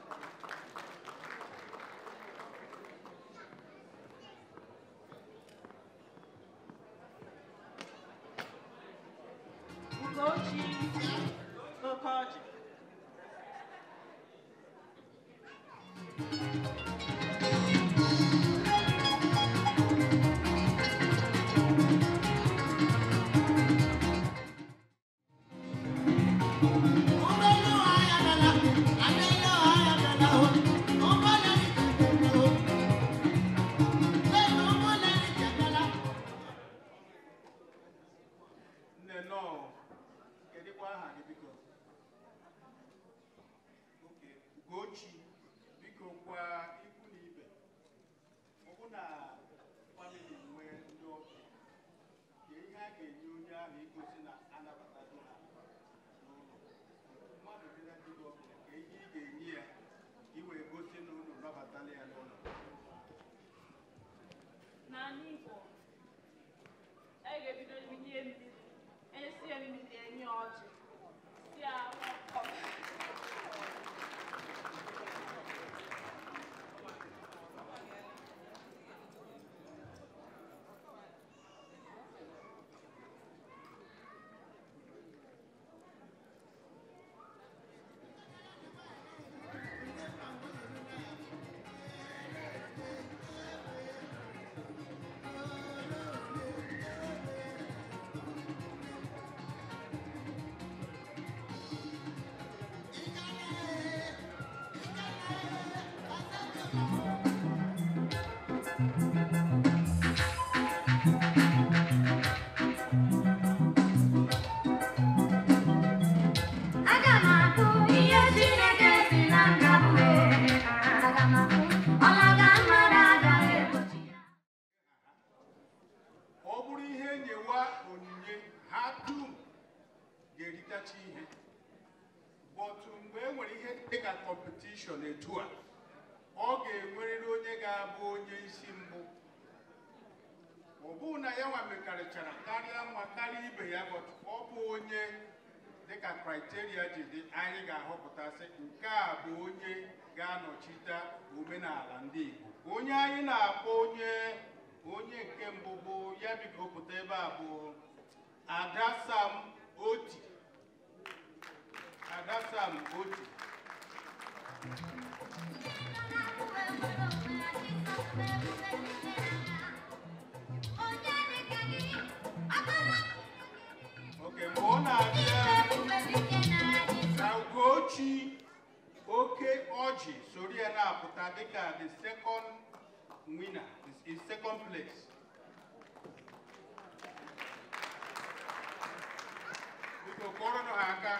bụ onye ga-anọchite omenala ndị Igbo onye anyị na-akpọ onye onye nke mbụ bụ ya biko pụta ebe a bụ Ada Oti Ada Sam Oti oke mgbe ọ na-abịa na Ugochi oke ọjị sori ya na-apụta dịka the second winner in second place biko kụọrọnụ ha aka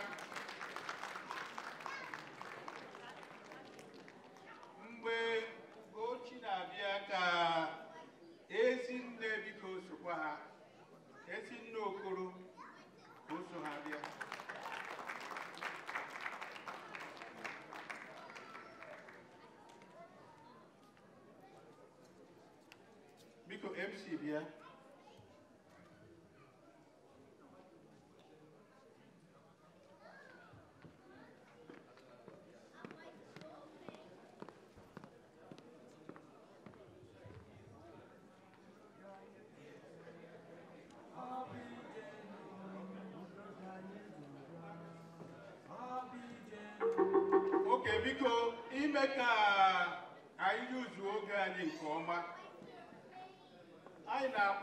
mgbe Ugochi na-abịa ka ezinne biko sokwa ha ezinne Okoro ka o so ha bịa Hallelujah. Okay, make a.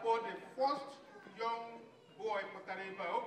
for the first young boy Kotareba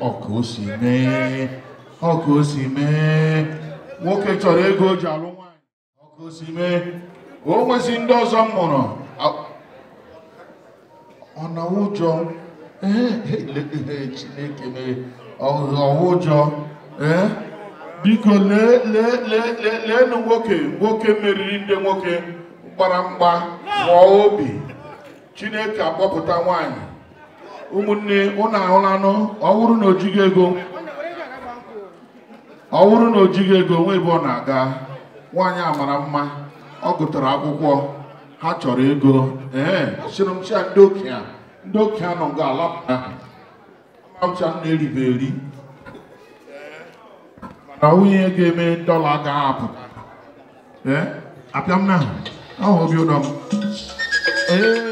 ọka o si mee ọka mee nwoke chọrọ ego o ji alụ nwaanyị ọka o si mee o nwezi ndị ọzọ m mụrụ ọ na ụjọ e, e, chineke mee ọhụ ụjọ ee biko lee lee leenụ nwoke nwoke meriri ndị nwoke gbara mgba mụọ obi chineke akpọpụta nwanyị ụmụnne ụnụ ahụlanụ ọ bụrụ na ojighị ego ọ na ojighị ego onwe ebe ọ na-aga nwaanyị amara mma ọ gụtara akwụkwọ ha chọrọ ego ee sịrịmcha ndị okenye ndị okenye nọ nga ala amcha m na-eribe eri mana nwunye ga-eme dọla ga-apụ apịa m na ahụ obi ụdọ m ee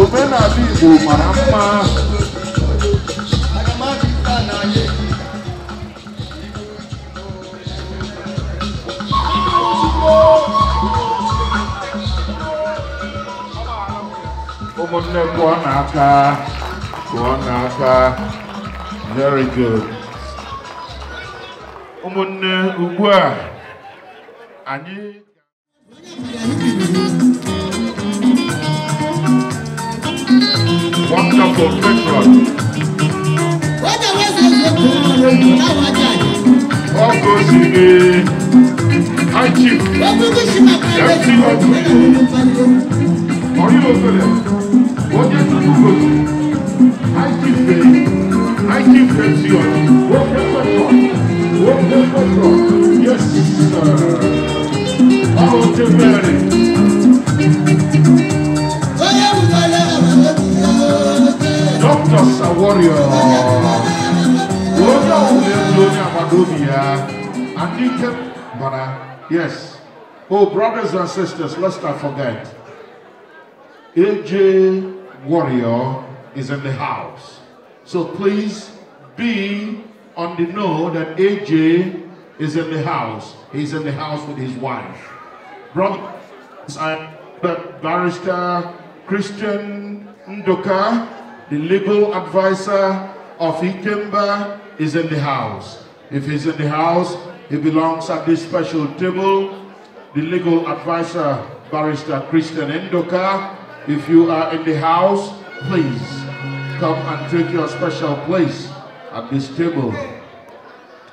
omenala Igbo mara mma ahụ ụmụnne pụọ n'aka very good ụmụnne ugbu a wonderful patriot. Whether was I your born, now I die. All goes in the Hachi. That's the one. Are you over there? What did you do? Hachi Bay. Hachi Pension. What happened? What happened? Yes, sir. Oh, the very. is a warrior. Wonga wule mloni amadobi ya. Anikem bana. Yes. Oh, brothers and sisters, lest I forget. AJ Warrior is in the house. So please be on the know that AJ is in the house. He's in the house with his wife. Brothers and barrister Christian Ndoka the legal advisor of Ikemba is in the house. If he's in the house, he belongs at this special table. The legal advisor, Barrister Christian Endoka, if you are in the house, please come and take your special place at this table.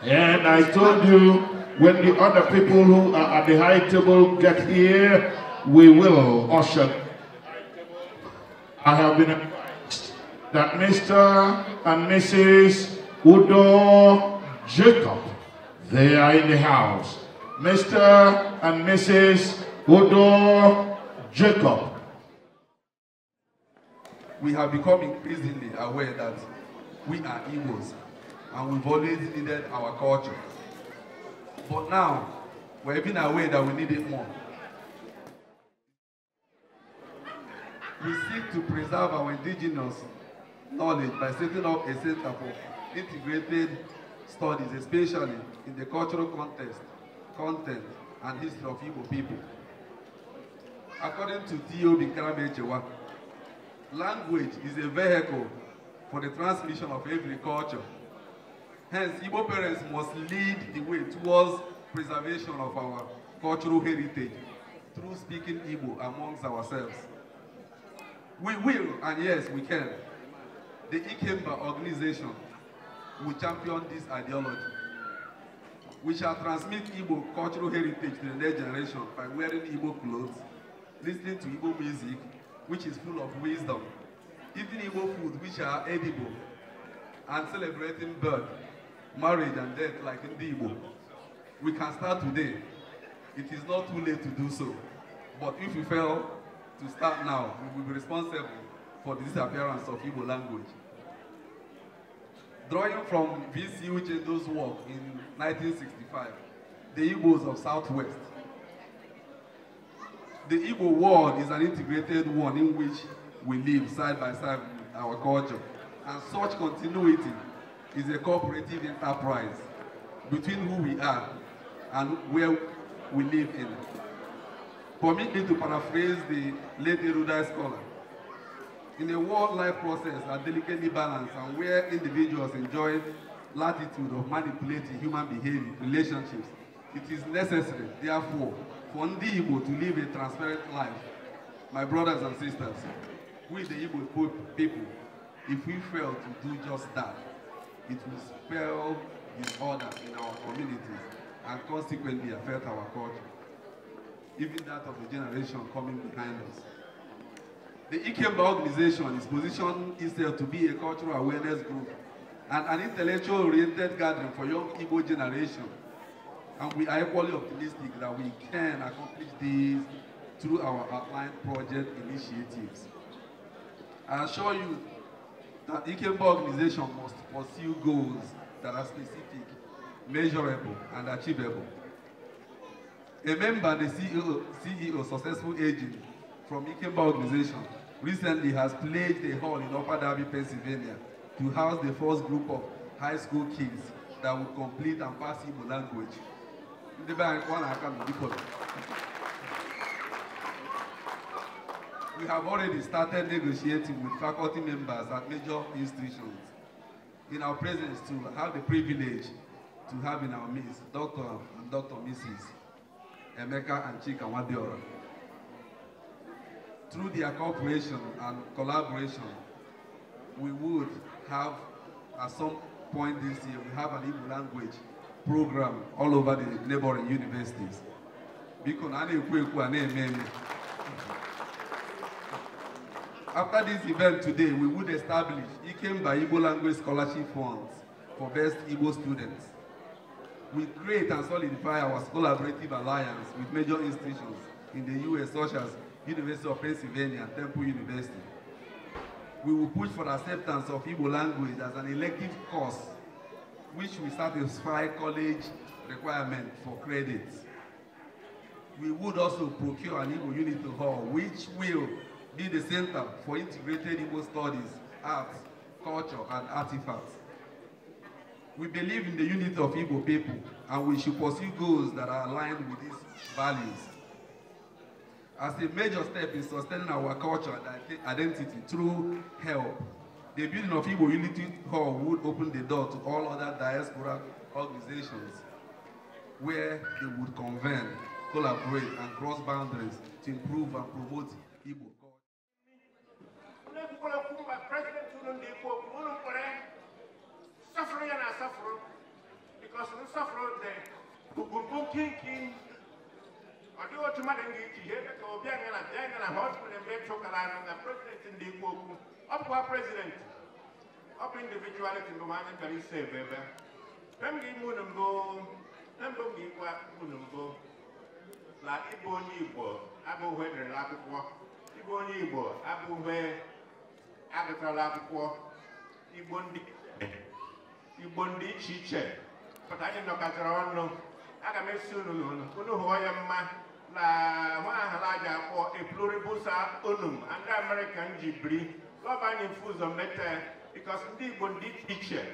And I told you, when the other people who are at the high table get here, we will usher. I have been that Mr. and Mrs. Udo Jacob, they are in the house. Mr. and Mrs. Udo Jacob. We have become increasingly aware that we are Igbos and we've always needed our culture. But now, we're even aware that we need it more. We seek to preserve our indigenous knowledge by setting up a center for integrated studies, especially in the cultural context, content, and history of Igbo people. According to T.O. Binkramechewa, language is a vehicle for the transmission of every culture. Hence, Igbo parents must lead the way towards preservation of our cultural heritage through speaking Igbo amongst ourselves. We will, and yes, we can. The Ikemba organization will champion this ideology. We shall transmit Igbo cultural heritage to the next generation by wearing Igbo clothes, listening to Igbo music, which is full of wisdom, eating Igbo food, which are edible, and celebrating birth, marriage, and death like in Igbo. We can start today. It is not too late to do so. But if we fail to start now, we will be responsible for the disappearance of Igbo language. Drawing from VCU Chendo's work in 1965, The Igbos of Southwest. The Igbo world is an integrated one in which we live side by side with our culture, and such continuity is a cooperative enterprise between who we are and where we live in. Permit me to paraphrase the late Eruda scholar, in a wildlife process are delicately balanced and where individuals enjoy latitude of manipulating human behavior, relationships, it is necessary, therefore, for ndị Igbo to live a transparent life. My brothers and sisters, we the Igbo people, if we fail to do just that, it will spell disorder in our communities and consequently affect our culture, even that of the generation coming behind us. The Ikemba organization is positioned itself to be a cultural awareness group and an intellectual-oriented gathering for young Igbo generation. And we are equally optimistic that we can accomplish this through our outlined project initiatives. I assure you that Ikemba organization must pursue goals that are specific, measurable, and achievable. A member, the CEO, CEO successful agent from Ikemba organization recently has pledged a hall in Upper Darby, Pennsylvania to house the first group of high school kids that will complete and pass Igbo language. We have already started negotiating with faculty members at major institutions in our presence to have the privilege to have in our midst Dr. and Dr. Mrs. Emeka and Chika Wadiora through their cooperation and collaboration, we would have, at some point this year, we have an Igbo language program all over the neighboring universities. After this event today, we would establish by Igbo Language Scholarship Funds for best Igbo students. We create and solidify our collaborative alliance with major institutions in the U.S. such as University of Pennsylvania, and Temple University. We will push for acceptance of Igbo language as an elective course, which will satisfy college requirement for credits. We would also procure an Igbo Unity Hall, which will be the center for integrated Igbo studies, arts, culture, and artifacts. We believe in the unity of Igbo people, and we should pursue goals that are aligned with these values as a major step in sustaining our culture and identity through help. The building of Igbo Unity Hall would open the door to all other diaspora organizations where they would convene, collaborate, and cross boundaries to improve and promote Igbo culture. ọ dịghị otu mmadụ m ga-eji ihe ka Obianọ na Obianọ na ha kwere na m chụkara anụ na prezidenti ndị ikwu okwu ọ bụkwa prezidenti ọ bụ individuality mbụ anyị bịara isi ebe ebe e m ga-ime unu mbụ e mbụ m ga-ikwu unu mbụ na ịbụ onye Igbo abụghị edere n'akwụkwọ. ịbụ onye Igbo abụghị agụtara akwụkwọ Igbo ndị iche iche pụta anyị nọkọtara ọnụ aga m esi unu unu hụ ya mma na pluribusa unum American mete because ndị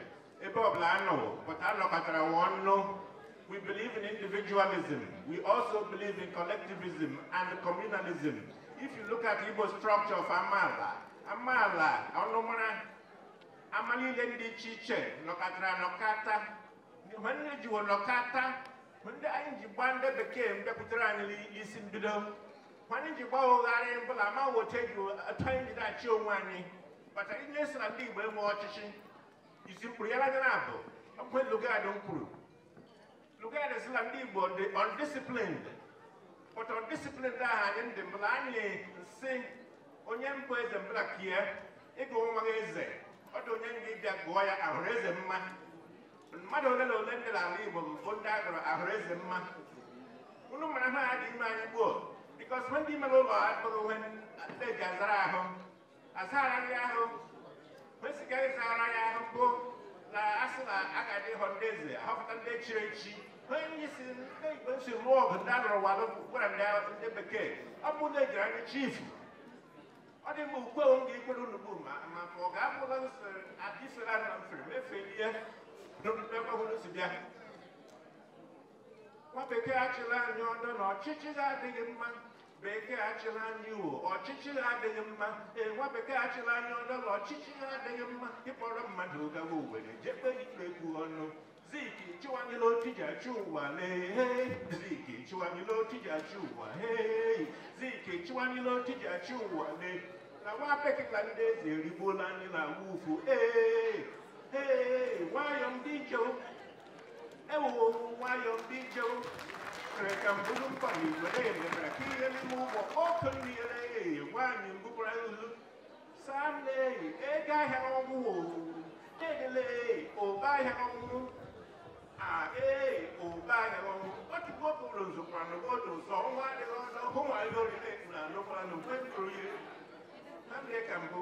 we believe in individualism we also believe in collectivism and communalism if you look at Ibo structure of Amala Amala ọnụmara ama niile ndị iche iche nọkọtara nọkata nwanne jiwo nọkata ndị anyị ji gba ndị bekee mbịakwutere anyị isi mbido anyị ji gbaghogharị mbụla ma wote ji atọ anyị ji na-achị onwe anyị bata ihe si na ndị Igbo enwe ọchịchị isi mkpụrụ ya lagara abụ okwe Lugard kwuru Lugard si na ndị Igbo dị undisciplined but undisciplined ahụ anyị ndị mbụla anyị si onye mbụ eze mbụla kie ịgụ nwa eze ọ dị onye ndị bịa gụọ ya ahụrụ eze mma mmadụ ole na ole dị ala Igbo bụ ndị agụrụ ahụrụ eze mma unu mara ha a dị ime anyị gboo bikos ndị mere ụlọ akpụrụ onwe eji azara ahụ nri ahụ kwesịghị ịzara ya ahụ bụ na asị na a ga adị ịhọ ndị eze ahọpụta ndị chiri echi onye ndị si ndị Igbo si rụọ ọgụ ndị alụrụ walụ gwara ndị ya ndị bekee ọ bụ na ejiri anyị chief ọ dị mma ukwe m ga-ekwere unu bụ ma ma ọ ga-abụla adịsela na mfere mefelie n'ọgbakọsibịa nwa bekee achịla anyị ọdọ na ọchịchị adịghị mma bekee achịla anyị iwo ọchịchị adịghị mma ee nwa achịla anyị ọdọ na adịghị mma ịkpọrọ mmadụ gawa jekpe ọnụ chịwanyela achị ụwa chịwanyela achị ụwa hei chịwanyela achị ụwa na nwa ndị eze anyị ụfụ ee nwayọọ ndị njewo ewo nwayọọ ndị Why am ka mbụrụ mkpa na igwere emebere ka ihe n'ime ụgbọ ọkụ mmiri oh, nwaanyị mbụbara nzu saa nne ehi ego ahịa ọgwụwụ edele ehi ụba ahịa ọgwụwụ a ee ụba ahịa ọgwụ otubo bụrụ nzọkwanụ otu nzọ ọnwa adịghị ọzọ hụ nwa ihe orire na anụkwanụ kwe mkpụrụ ihe na mmiri ka mbụ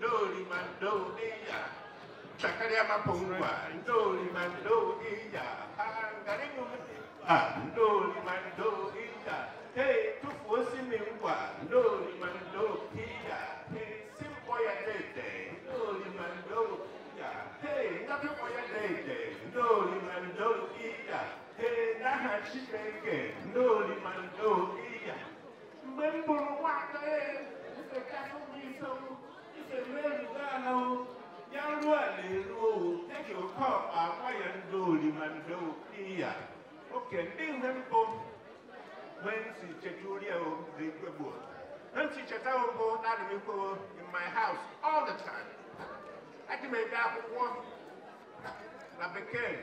mandoli mando iya chakalia mapungwa ndoli mando iya angarimu ndoli mando hey tufuosi mingwa ndoli mando iya hey simpo ya dede ndoli mando hey ndapepo ya dede ndoli mando iya hey nahashibeke ndoli mando iya mgbe m bụrụ nwata Isomeri dana wo, yaluwa leru wo, teki okɔ akwa yando limando wo iya. Okay, ndi hembo, wensi cheturia wo, zikwebo. Nanti cheta wo bo, nani miko in my house all the time. Ati me da kwa, na beken.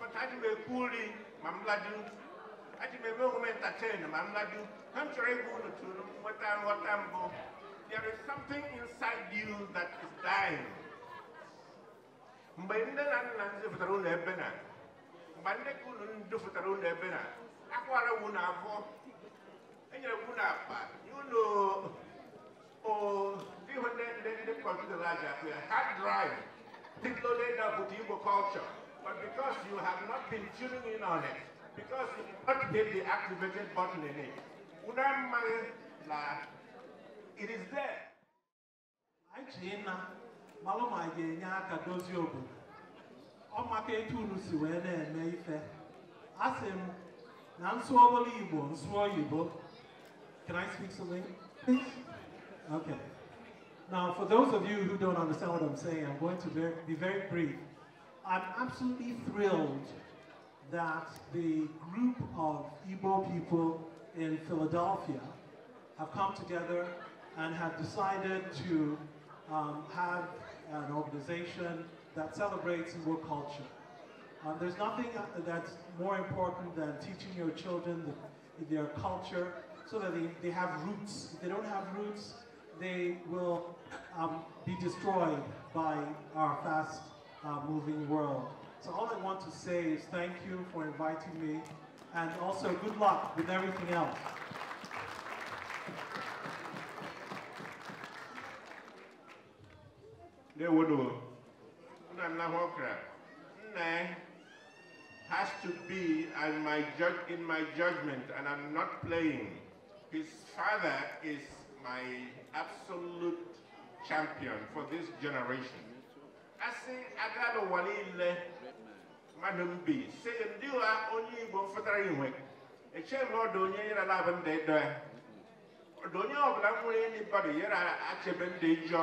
But ati me kuli, mamladu, ati me mo entertain, mamladu. Hamchore gudu tu, watan watan bo. there is something inside you that is dying mgbe ndị na nna ndị fụtara ụlọ ebe na mgbe ndị ka unu ndị fụtara ụlọ ebe na akwara wu na afọ enyere wu na akpa ụlọ ihe ndị ndị laja. kọmpụtara aja hard drive people loaded up with Igbo culture but because you have not been tuning in on it because you did not hit the activated button in it unu amaghị na it is there I chee nna malụ ma ga-enye aka dozie obodo ọ can I speak something okay now for those of you who don't understand what I'm saying I'm going to be very brief I'm absolutely thrilled that the group of Igbo people in Philadelphia have come together and have decided to um, have an organization that celebrates Igbo culture. Um, there's nothing uh, that's more important than teaching your children the, their culture so that they, they have roots. If they don't have roots, they will um, be destroyed by our fast uh, moving world. So all I want to say is thank you for inviting me and also good luck with everything else. Ndewodo, Nana Hokra, Nne has to be and my judge in my judgment, and I'm not playing. His father is my absolute champion for this generation. Asị agado ụwa niile mmadụ mbi si ndị only onye Igbo mfụtara inwe echeghị m ọdụ onye nyere ala abụ ndị dọ not ọdụ onye ọbụla nwere enyi bọdụ nyere achebe ndị njọ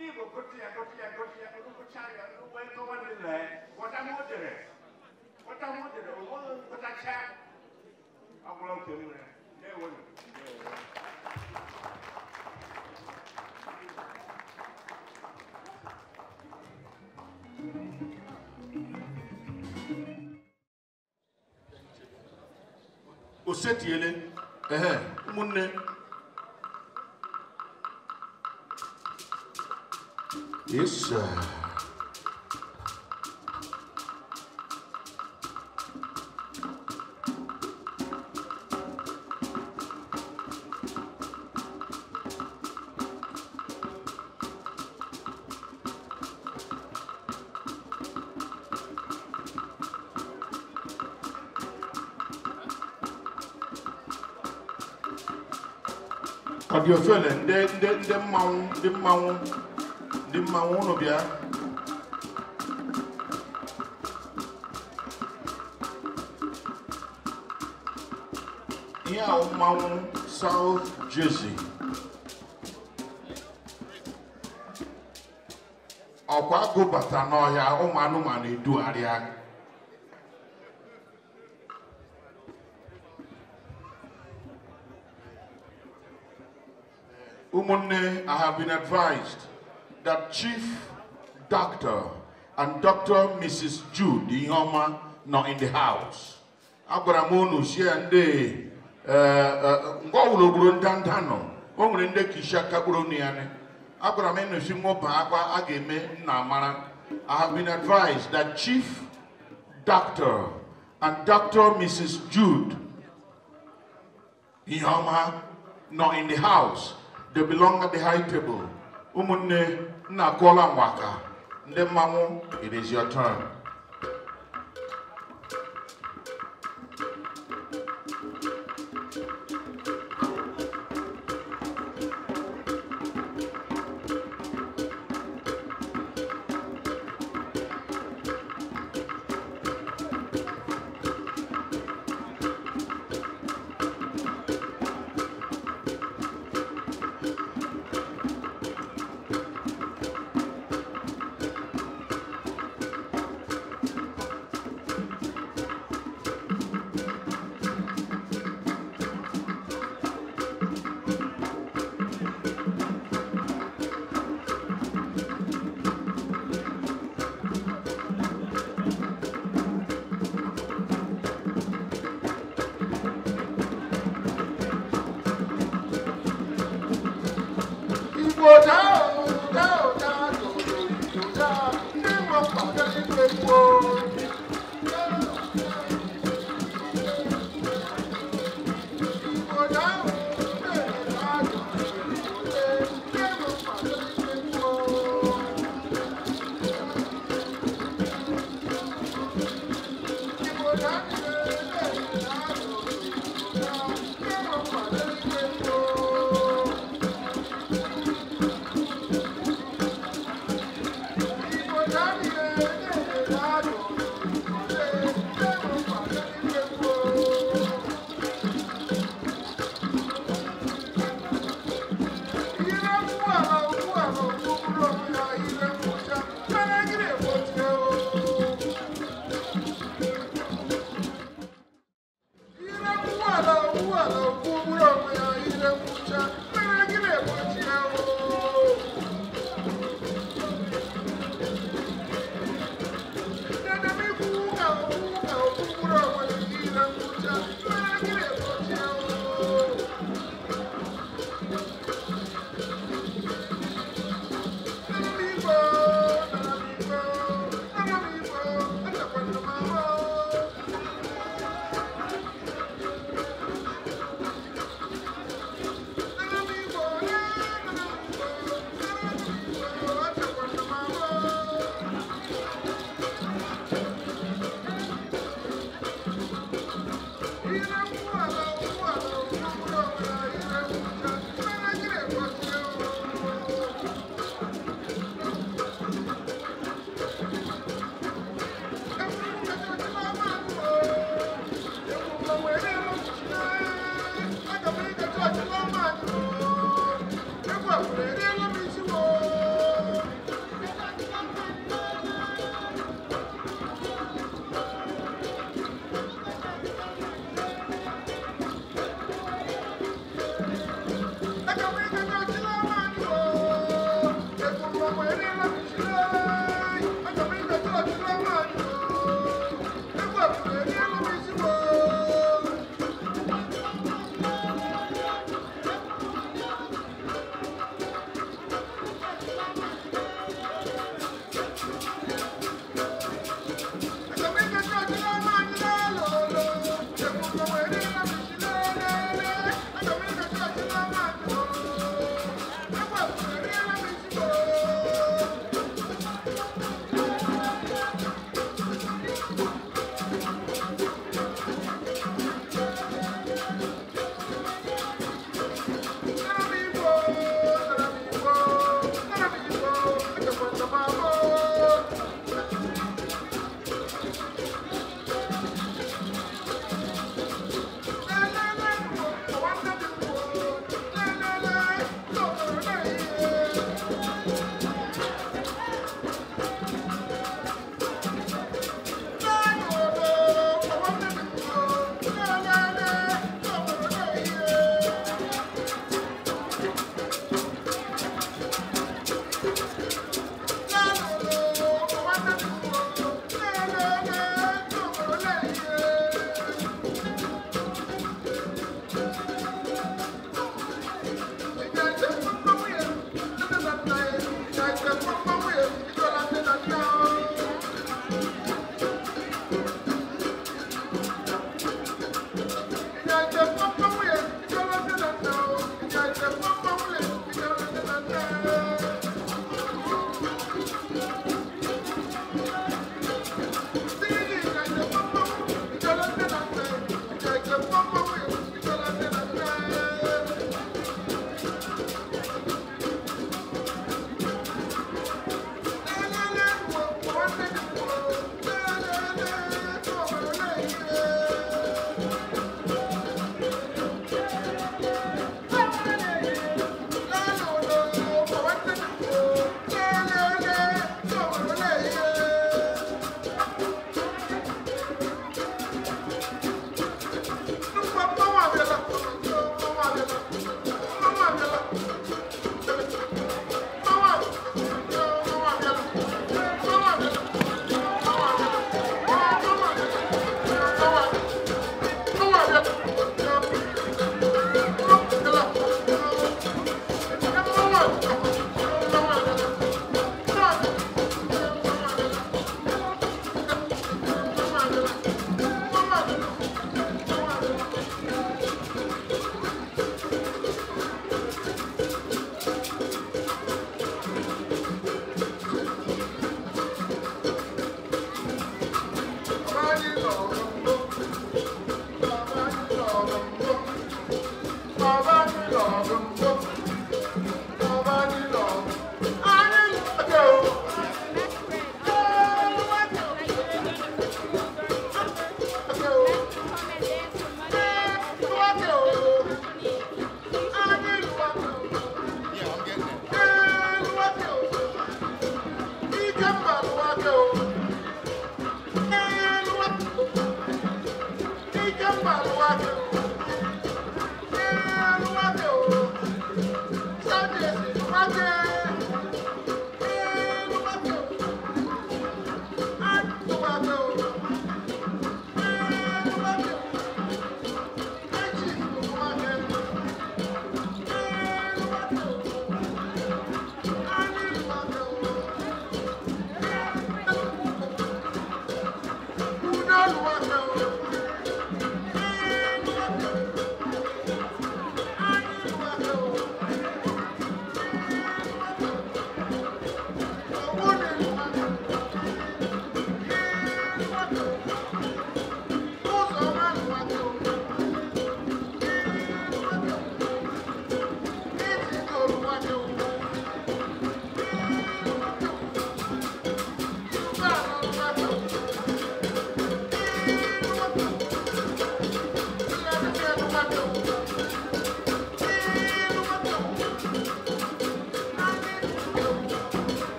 ನೀವು ಕೊಟ್ಟಿಯ ಕೊಟ್ಟಿಯ ಕೊಟ್ಟಿಯ ಕೊಡು ಕೊಟ್ಟಾಗ ಉಪಯೋಗವನ್ನಿಲ್ಲ ಒಟ ಮೂತಿರೆ ಒಟ ಮೂತಿರೆ ಓದೊಂದು ಗೊತ್ತಾಕ್ಷ ಅವುಗಳು ತಿಳಿದ್ರೆ ದೇವರು osetiele ehe ụmụnne Yes, uh, you Ka dị ofe the ndị mmanwụ ndị dị mmanwụ bịa ihe ahụ mmanwụ um South Jersey ọkwa gụbata n'ọhịa ụmụ anụmanụ edugharịa Umunne, I have been advised that Chief Doctor and Dr. Mrs. Jude Ihoma not in the house. Agwara m unu sie ndị eh, eh, ngwa ọbụla ogburu ndanda nọ o nwere ndị kisha kagburu onu ya agwara m ịnụsi I have been advised that Chief Doctor and Dr. Mrs. Jude Ihoma not in the house. They belong at the high table. Ụmụnne Nakwola Mwaka. Nde it is your turn.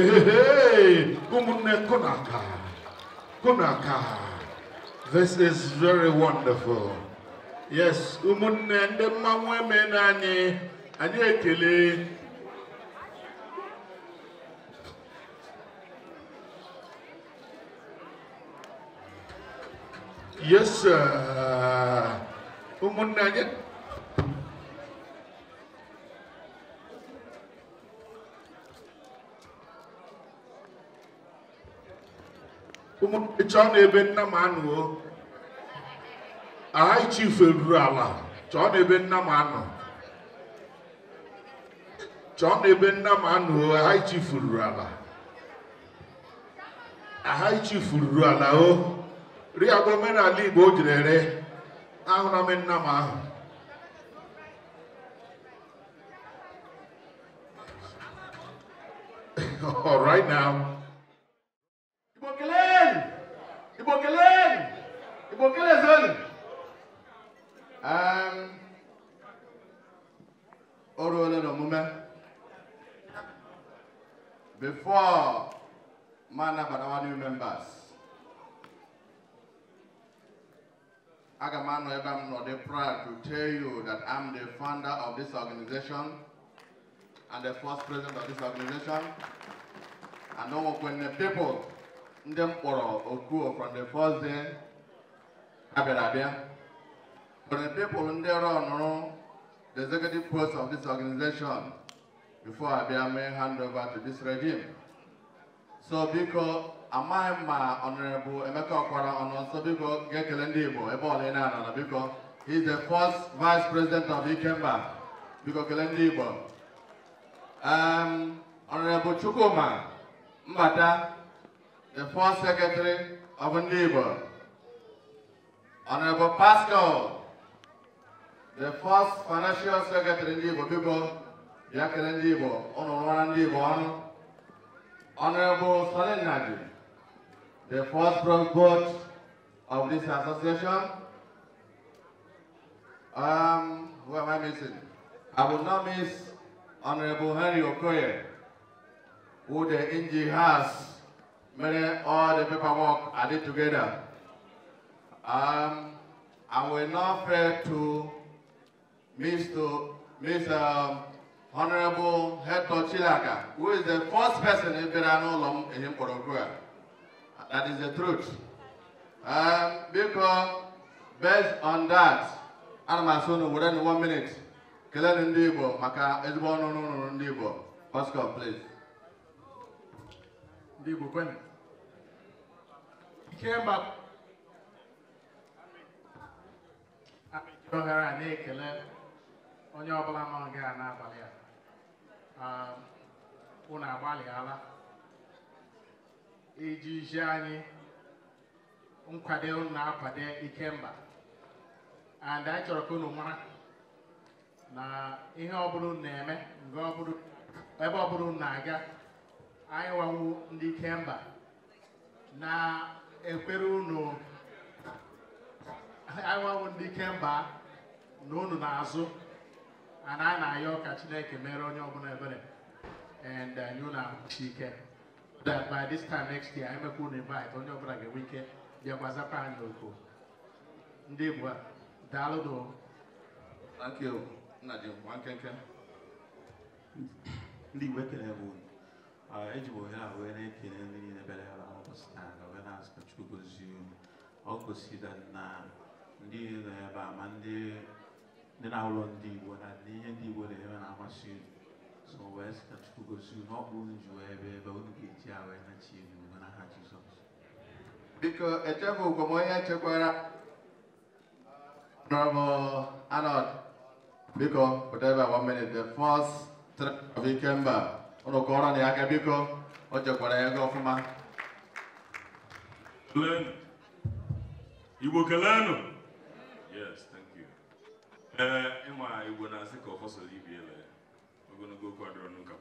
Hey, umunne kunaka. Kunaka. This is very wonderful. Yes, umunne ndị mma women anyị, ekele. Yes, sir. Umunne anyị chọọ na ebe nna m anụọ aha ichifu eruru ala chọọ na ebe nna m anọ chọọ na ebe nna m anụọ aha ichifu ruru ala aha ichifu ruru ala o ri omenala igbo o ere ahụra m nna m ahụ [laughs] all right now Igbo kelee Igbo kelezoni o ruola n'omume before ma anabatawa new members aga m anọ ebe proud to tell you that I'm the founder of this organization and the first president of this organization and Onwokwene people ndị mkpọrọ kpọrọ Okuo from the abịara abịa for the people ndị rọnụrụ the executive post of this organization before abịa mee hand over to this regime so biko amaghị ma ọnọrọbụ Emeka Ọkwara ọnọ nso biko ga-ekele ndị Igbo ebe ọla ị na-anọ na biko he is the first vice president of Ikemba biko kele ndị Igbo ọnọrọbụ um, Chukwuma Mbata the first secretary of NEBA, Honorable Pascal, the first financial secretary in NEBA, people, Yakin NEBA, Honorable NEBA, Honorable Salin Nadi, the first board of this association. Um, who am I missing? I will not miss Honorable Henry Okoye, who the NG has Many all the paperwork I did together. Um, I will now pray to Mr. Mr. Um, Honorable Hector Chilaka, who is the first person in Verano in Porogua. That is the truth. Um, because based on that, I'm asụ within one minute kelenụ ndị Igbo maka ezigbo ọnụ ọnụ ndị Igbo Pascal please ndị when? came back. ohere a na-ekele onye ọbụla nọ gị a n'abalị a um, unu agbalịala iji zie anyị nkwado unu na-akwado ikemba and anyị chọrọ ka unu mara na ihe ọbụla na-eme ebe ọbụla unu na-aga anyị nwawo ndị ikemba na ekwere unu anyanwụ ndị ikemba na unu na ana a na-ayọ ka chineke mere onye ọbụla ebere and anyị uh, na-achị ike that by this time next year emekwa unu invite onye ọbụla ga-enwe ike bịakwa zapụ anyị oku ndị Igbo daalụ Thank you, nna ji nwa nkenke ndị Igbo ekele bụ uh, eji m ohere a wee na-ekele ndị niile bịara ya na ụbọchị taa igoziri ọ gosiri na ndị nọ ebe a ma ndị na-ahụlọ ndị na ihe ndị Igbo na-eme na masi. so wee sị na Chukwu gosi unu ọ bụ unu ji wee ebe ebe unu ga-eji a wee nachi elu biko echebe ugwo m onye chekwara biko pụta one minute the first three of Ikemba ụnụ kọrọ na ya aka biko o chekwara ego will learn them. Yes, thank you. Uh, Emma, Igbo Nasiko Hosso Libiele. We're going to go quadro nuka.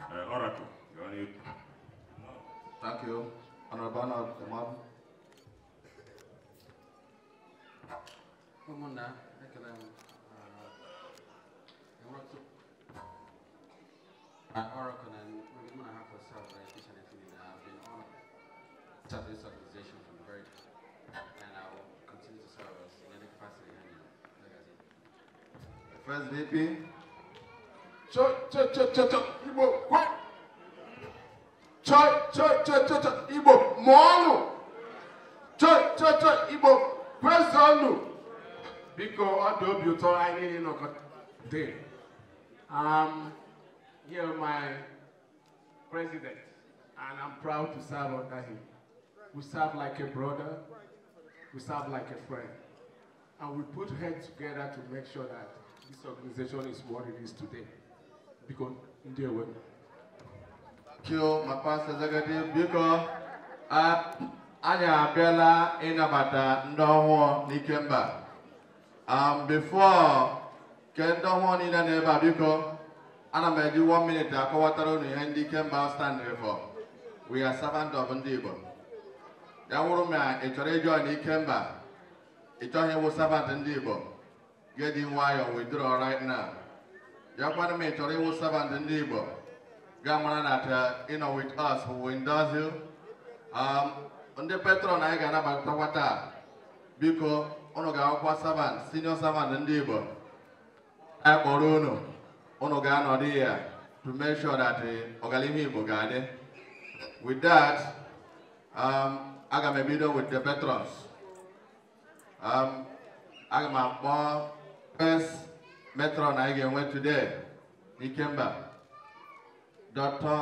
Uh, Oracle, you're on you. Thank you. Honorable Anna, the mom. Come on now. I Oracle and we're going to have a serve this organization from the very and I will continue to serve us in any capacity First VP. Cho cho cho cho cho Ibo. quick. Cho cho cho cho cho Igbo mọọnụ. Cho cho cho Igbo kwesọnụ. Biko ọ dị obi ụtọ anyị day. Um, here my president, and I'm proud to serve under him. We serve like a brother. We serve like a friend. And we put heads together to make sure that this organization is what it is today. Because in their way. Thank you, my pastor Zagadi. Because ah, anyị abịala ịnabata ndị ọhụụ n'ike Um, before kendo ndị ọhụụ niile na-ebe a biko one minute akọwatara unu ihe ndị ike mba standrị for we are servant of ndị Igbo ya wụrụ m ya ị chọrọ ịjọ na ike mba ị sabat ndị Igbo get in withdraw right now ya kwana m ị chọrọ ịwụ sabat ndị Igbo ga mara na you know with us who will endorse um, you ndị patron anyị ga-anabatatakwa taa biko ụnụ ga-akwụkwọ sabat senior sabat ndị Igbo anyị kpọrọ unu unu ga-anọdụ ya to make sure that ọganihu eh, Igbo ga-adị with that um, I got a video with the veterans got my mom, first metron I ga ga-enwe today He came back. Dr.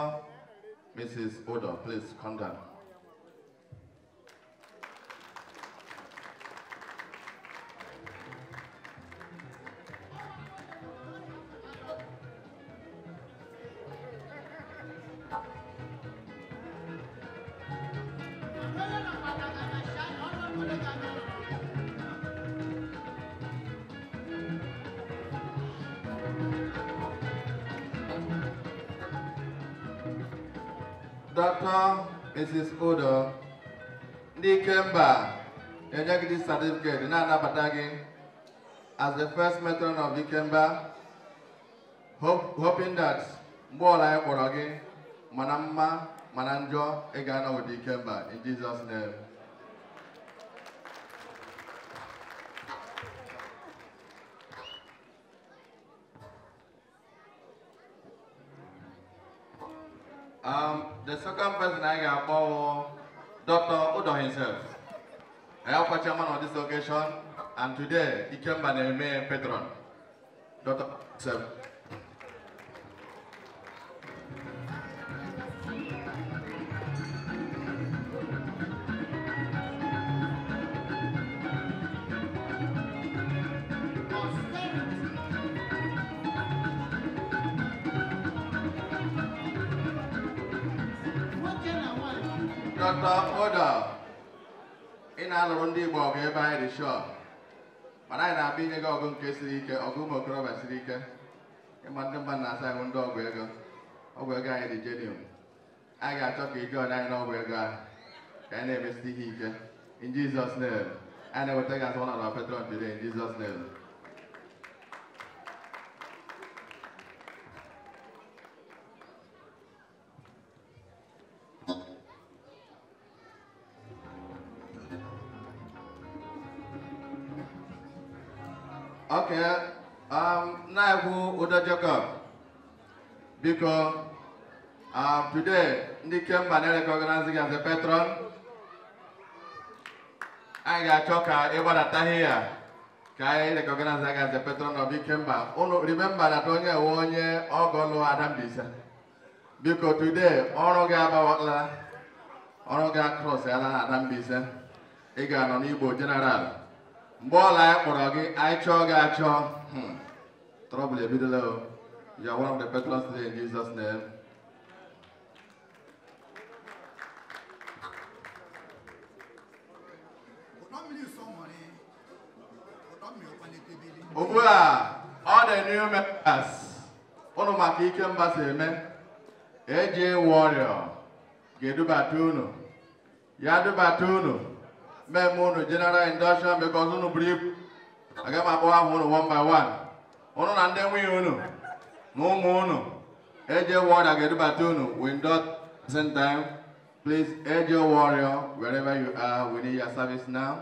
Mrs. Odo, please come down. Mrs. Odo ndị Ikemba enye gị certificate na-anabata gị as the first matron of kemba, hoping that mgbe ọla anyị kpọrọ gị mana mma mana njọ ga-anọ with kemba. in Jesus name Um, the second person I got for Dr. Udo himself. I am a chairman on this occasion, and today he came by the main patron, Dr. himself. ọtọ ụdọ ị ị jụọ anyị n'ọgwụ ego ahụ ka anyi in Jizọs name anyị na-eweta gị asọ ọnọdụ petron today in Jizọs name Okay. Um, na-ekwu ụdọ Jacob. Because um, today, ndị Kemba na-recognize gị as a patron. Anyị ga-achọ ka ị gbadataghị ya ka anyị recognize gị as a patron of Ikemba. Unu remember that onye ewe onye ọgọ lụọ Adambisa. Biko, today, ọrụ gị abawala, ọrụ gị across ala na Adambisa. Ị ga-anọ n'Igbo General. mgbe ọla anyị kpọrọ gị anyị chọọ gị achọ hmm. trọbụl ebidola o you are one of the patrons today in Jesus name ugbu a ọ dị new members ụnụ maka ike mba si eme eji ịnwụ ọrịa ga-edubata unu ya dubata unu men ụnụ general induction because ụnụ brief ibu aga m akpọwa one by one ụnụ na ndị nwunye ụnụ na ụmụ ụnụ eje warrior ga-edubata ụnụ we dot same time please eje warrior wherever you are we need your service now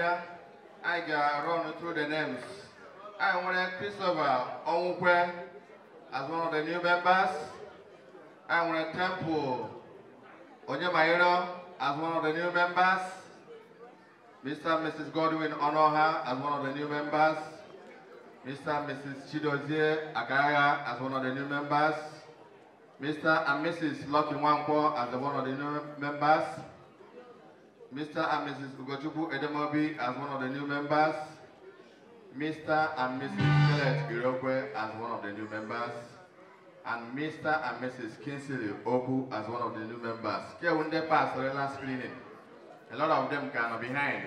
abịa run through the names I want Christopher Onwukwe as one of the new members I want Temple Onyemayiro as one of the new members Mr. and Mrs. Godwin Onoha as one of the new members Mr. and Mrs. Chidozie Agaga as one of the new members Mr. and Mrs. Lucky Wankwo as one of the new members Mr. and Mrs. Ugochukwu Edemobi as one of the new members, Mr. and Mrs. Skelet Girokwe as one of the new members, and Mr. and Mrs. Kinsley Oku as one of the new members. Keunde Pass, Relance Cleaning. A lot of them kind of behind.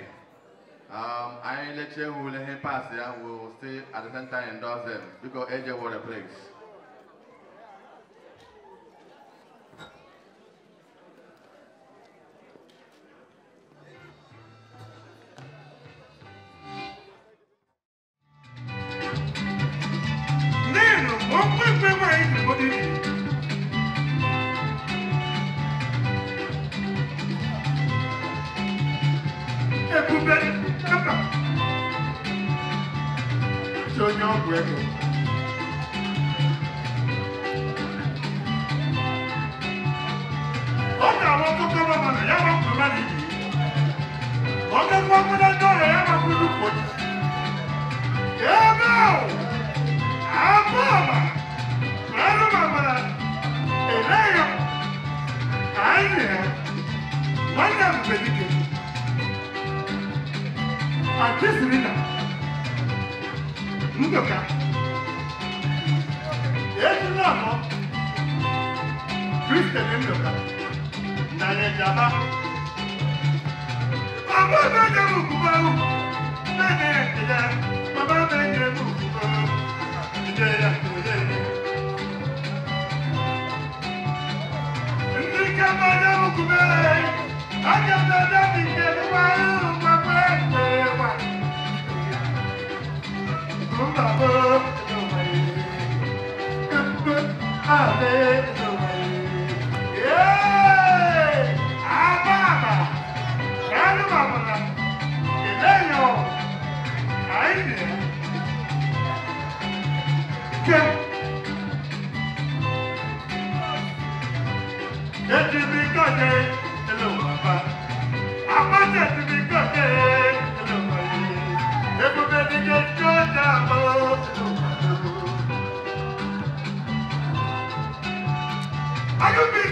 Um, I let you who let him pass there will stay at the time and endorse them because AJ were the place.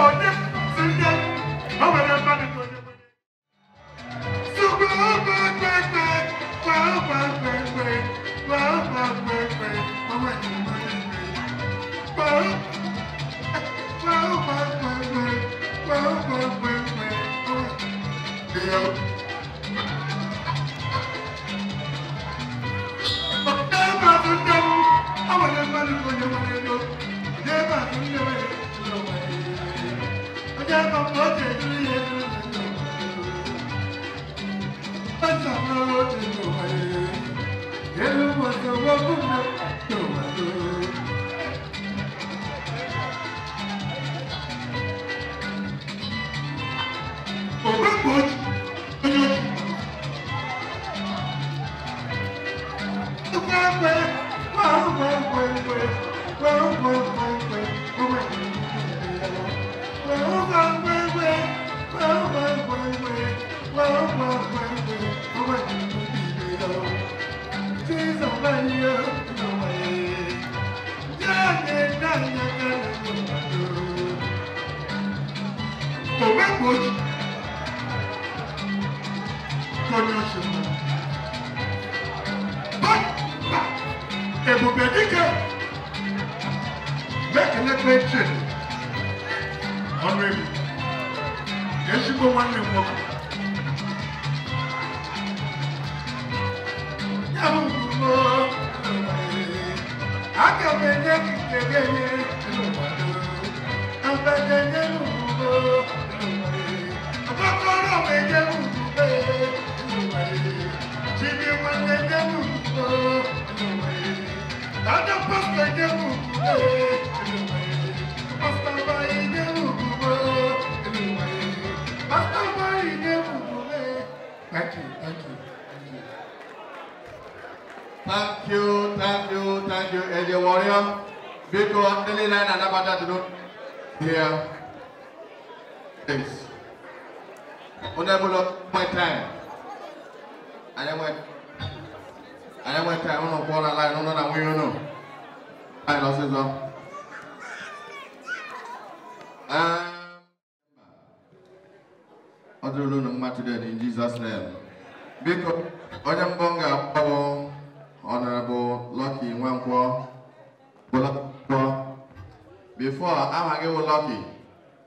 for this Gott, Gott, Gott.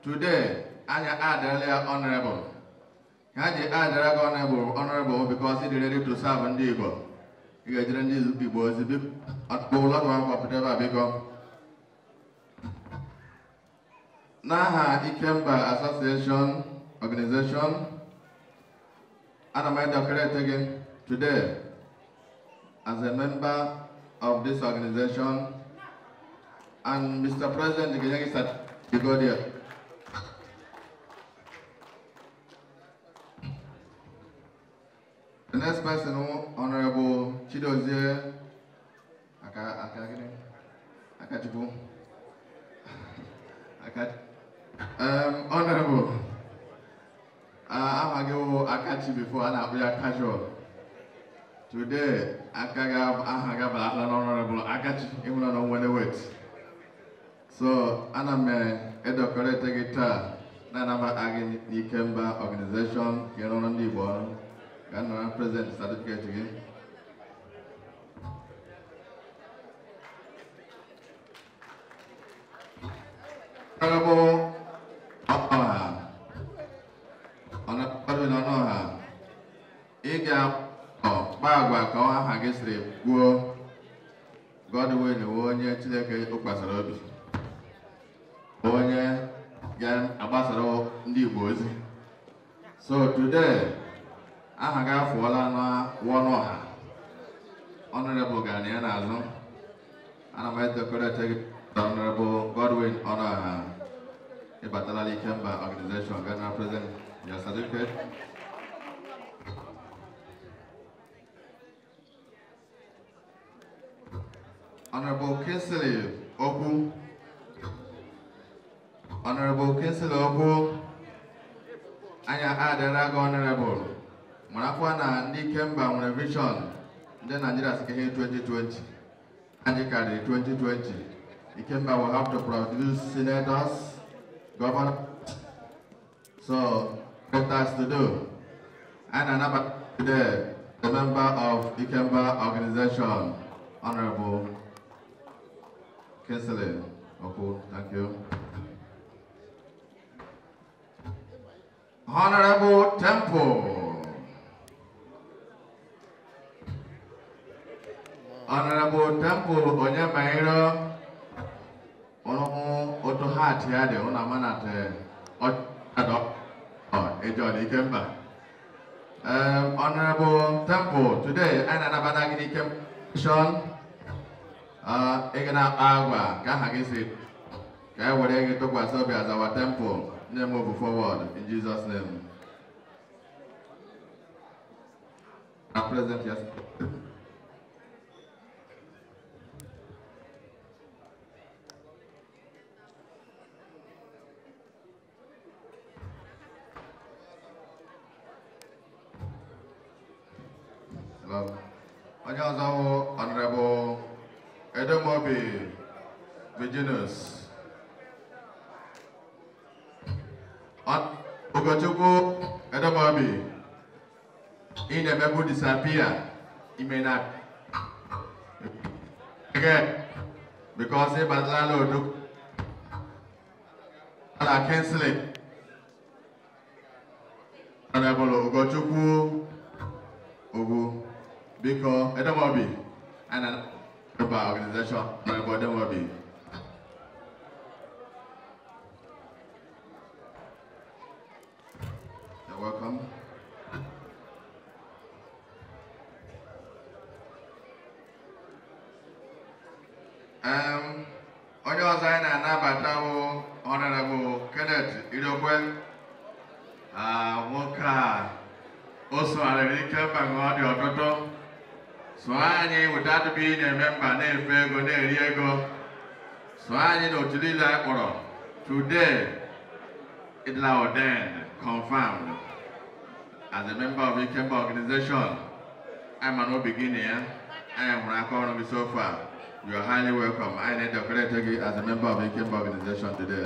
Today, I adela honorable. Haji adela honorable, honorable because he is ready to serve and Igbo. He is ready to was a big at Bola one whatever because Naha Ikemba Association Organization and I'm decorated again today as a member of this organization and Mr. President Ganyagi Sat Bigodia. The next person, Honorable Chidozie Akajibu. Akaj [laughs] um, Honorable, uh, I'm going to Akachi before and I'll be a casual. Today, Akagab Ahagab Honorable Akachi, even on when wait. So, I'm a decorated guitar, Nanaba Agin Nikemba organization, Kenon Libon. Can I present certificate again? Honorable Onoha, Honorable Onoha, ị ga-akpa oh, agwa ka aha gị siri gwuo Godwin wee onye Chineke tụkwasịrị obi Honorable Kinsley Opu. Honorable Kinsley Opu. Anya Adaraga Honorable. Mwanakwa na ndị Kemba nwere vision ndị Nigeria si ihe 2020. Anyị karịrị 2020. Ikemba will have to produce senators, governors. So, what us to do? And another today, the member of Ikemba organization, Honorable Kesseler. Okay, thank you. Honorable Temple. Honorable Temple, onye mairo ọnụhụ otu ha atị ya dị ụna manate ọdọ ịjọ dị ike mba. Um, Honorable Temple, today, I na-anabata gị n'ike mission ị ga na-akpa agwa ka aha gị si ka e were gị tụkwasị obi azawa temple nne m obu forward in Jesus name present yes onye ọzọ honorable Edamobi, Virginus. At Ogachoko, Edamobi. In the memo disappear, he may not. Again, because he Badlalo do are canceling. Honorable Ogachoko, Ogo, because Edamobi, and an About organization, my body will be. You're welcome. Um, onye ọzọ anyị na-anabata bụ Honorable Kenneth Idokwe ah, nwoke a also sogharịrị ike mba ọ dị ọtụtụ So anyị weta atụpụ ị na-eme mba na-efe ego na-eri ego sụọ anyị na otu niile anyị kpọrọ today it is ordained confirmed as a member of Ikemba organization I'm an beginner. I am ya anyị hụrụ aka ọrụ gị so far you are highly welcome anyị na-edekorete gị as a member of Ikemba organization today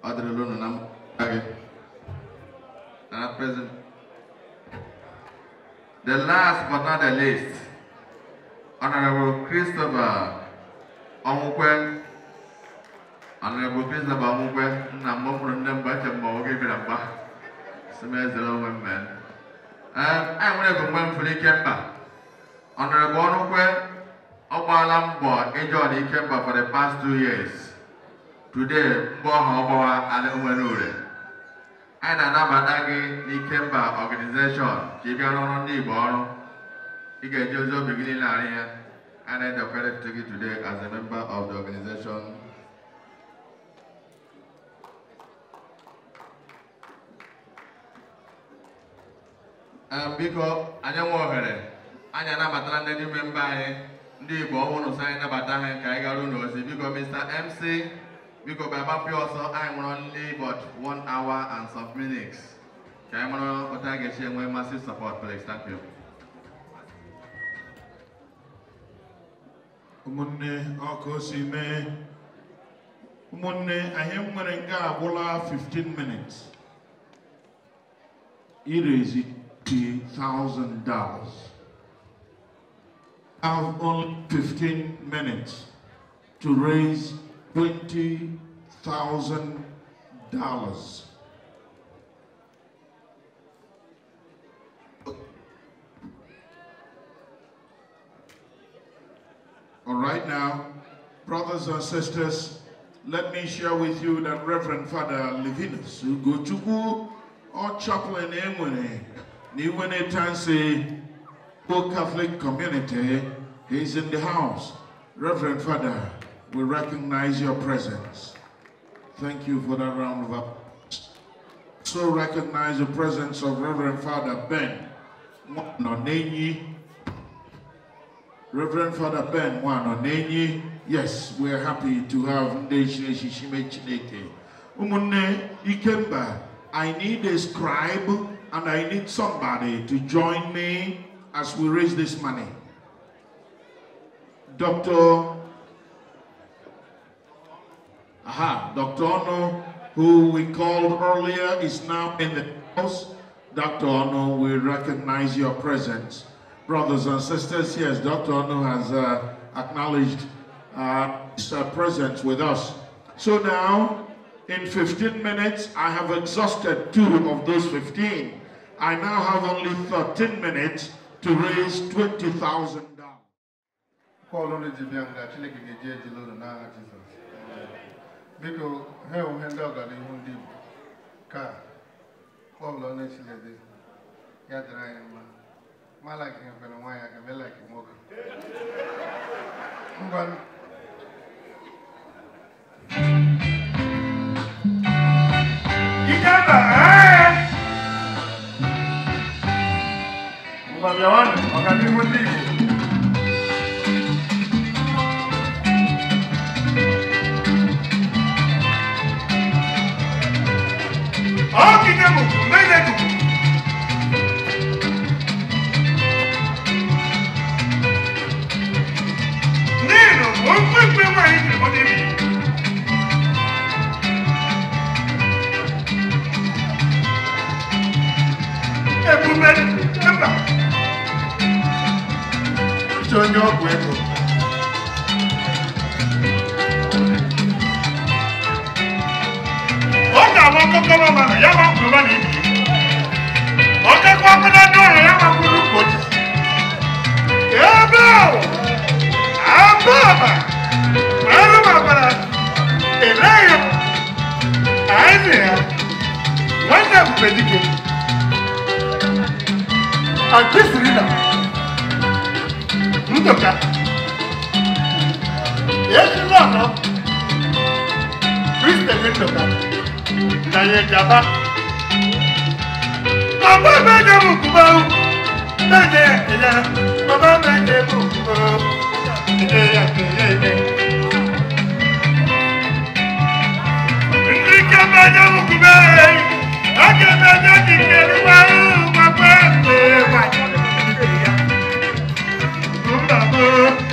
ọ dịrịla unu na I gị present the last but not the least, Honorable Christopher Omukwen. Honorable Christopher Omukwen, Nambo from Namba Chambo, give it a back. Smith, the women. Man. I'm going to go for the Kemba. Honorable Omukwen, Obala Mbo, enjoy the Kemba for the past two years. Today, Mbo Hobawa, and Umanure. anyị na-anabata gị n'ikemba ọganizeshọn ka ị bịa rụrụ ndị Igbo ọrụ ị ga-eji ozi obi gị niile arị ya and I decorated to you today as a member of the organization. biko anyị nwe ohere anyị anabatara ndị ime mba anyị ndị Igbo ọhụrụ so anyị nabata ha ka anyị gara ụlọ ozi biko Mr MC biko baba pịa ọsọ anyị nwụrụ but 1 hour and some minutes ka anyị mara to ga ga-esi enwe mmasị support please thank you ụmụnne ọkụ si mee ụmụnne anyị nwere nke agwụla 15 minutes irezi two thousand dollars I have only 15 minutes to raise $20,000. All right now, brothers and sisters, let me share with you that Reverend Father Levinus Ugochukwu or chaplain Enwene Niwene Tansi Poor Catholic community is in the house. Reverend Father we recognize your presence. Thank you for that round of applause. So recognize the presence of Reverend Father Ben Wanonenyi. Reverend Father Ben Wanonenyi. Yes, we're happy to have Ndeshine Shishime Chineke. Umune Ikemba, I need a scribe and I need somebody to join me as we raise this money. Dr. Aha, Dr. Ono, who we called earlier, is now in the house. Dr. Ono, we recognize your presence. Brothers and sisters, yes, Dr. Ono has uh, acknowledged uh, his uh, presence with us. So now, in 15 minutes, I have exhausted two of those 15. I now have only 13 minutes to raise $20,000. biko ha onwe ndị ọgara ihu ndị Igbo ka ọbụla na-echilede ya dịrị anyị mma malaki nwere nwaanyị aga melaki nwoke ngwanụ Vamos lá, Leone, ọ̀ọ́dìdẹ́ mọ̀ mẹ́lẹ́dùn. ní ìrànwọ́ pínpín wà ní ìrànwọ́dé mi. ebumeri ẹgbà. tí ó ní ọgwụ ego. akụkọrọ mana ya ma mkpụrụ na ibi ọkakwa akụna ndị ọrụ ya ma mkpụrụ mkpochi ebe ahụ abụ ọba ọrụ mabara eleghị m anyị na ya nwanne mgbe dike agbesiri na ndụka esi n'ọnọ kristian ndụka ìtàyẹ jàmbá. bàbá bẹ́ẹ̀ mú kúbọ̀ o bẹ́ẹ̀ ẹ̀yà bàbá bẹ́ẹ̀ mú kúbọ̀ o ẹ̀yà ẹ̀yà ẹ̀yà. Ndike bẹ́ẹ̀ mú kúbọ̀ o ọjọ́ bẹ́ẹ̀ ti kẹ́rù wá o bàbá bẹ́ẹ̀ wá. Mbàbọ̀.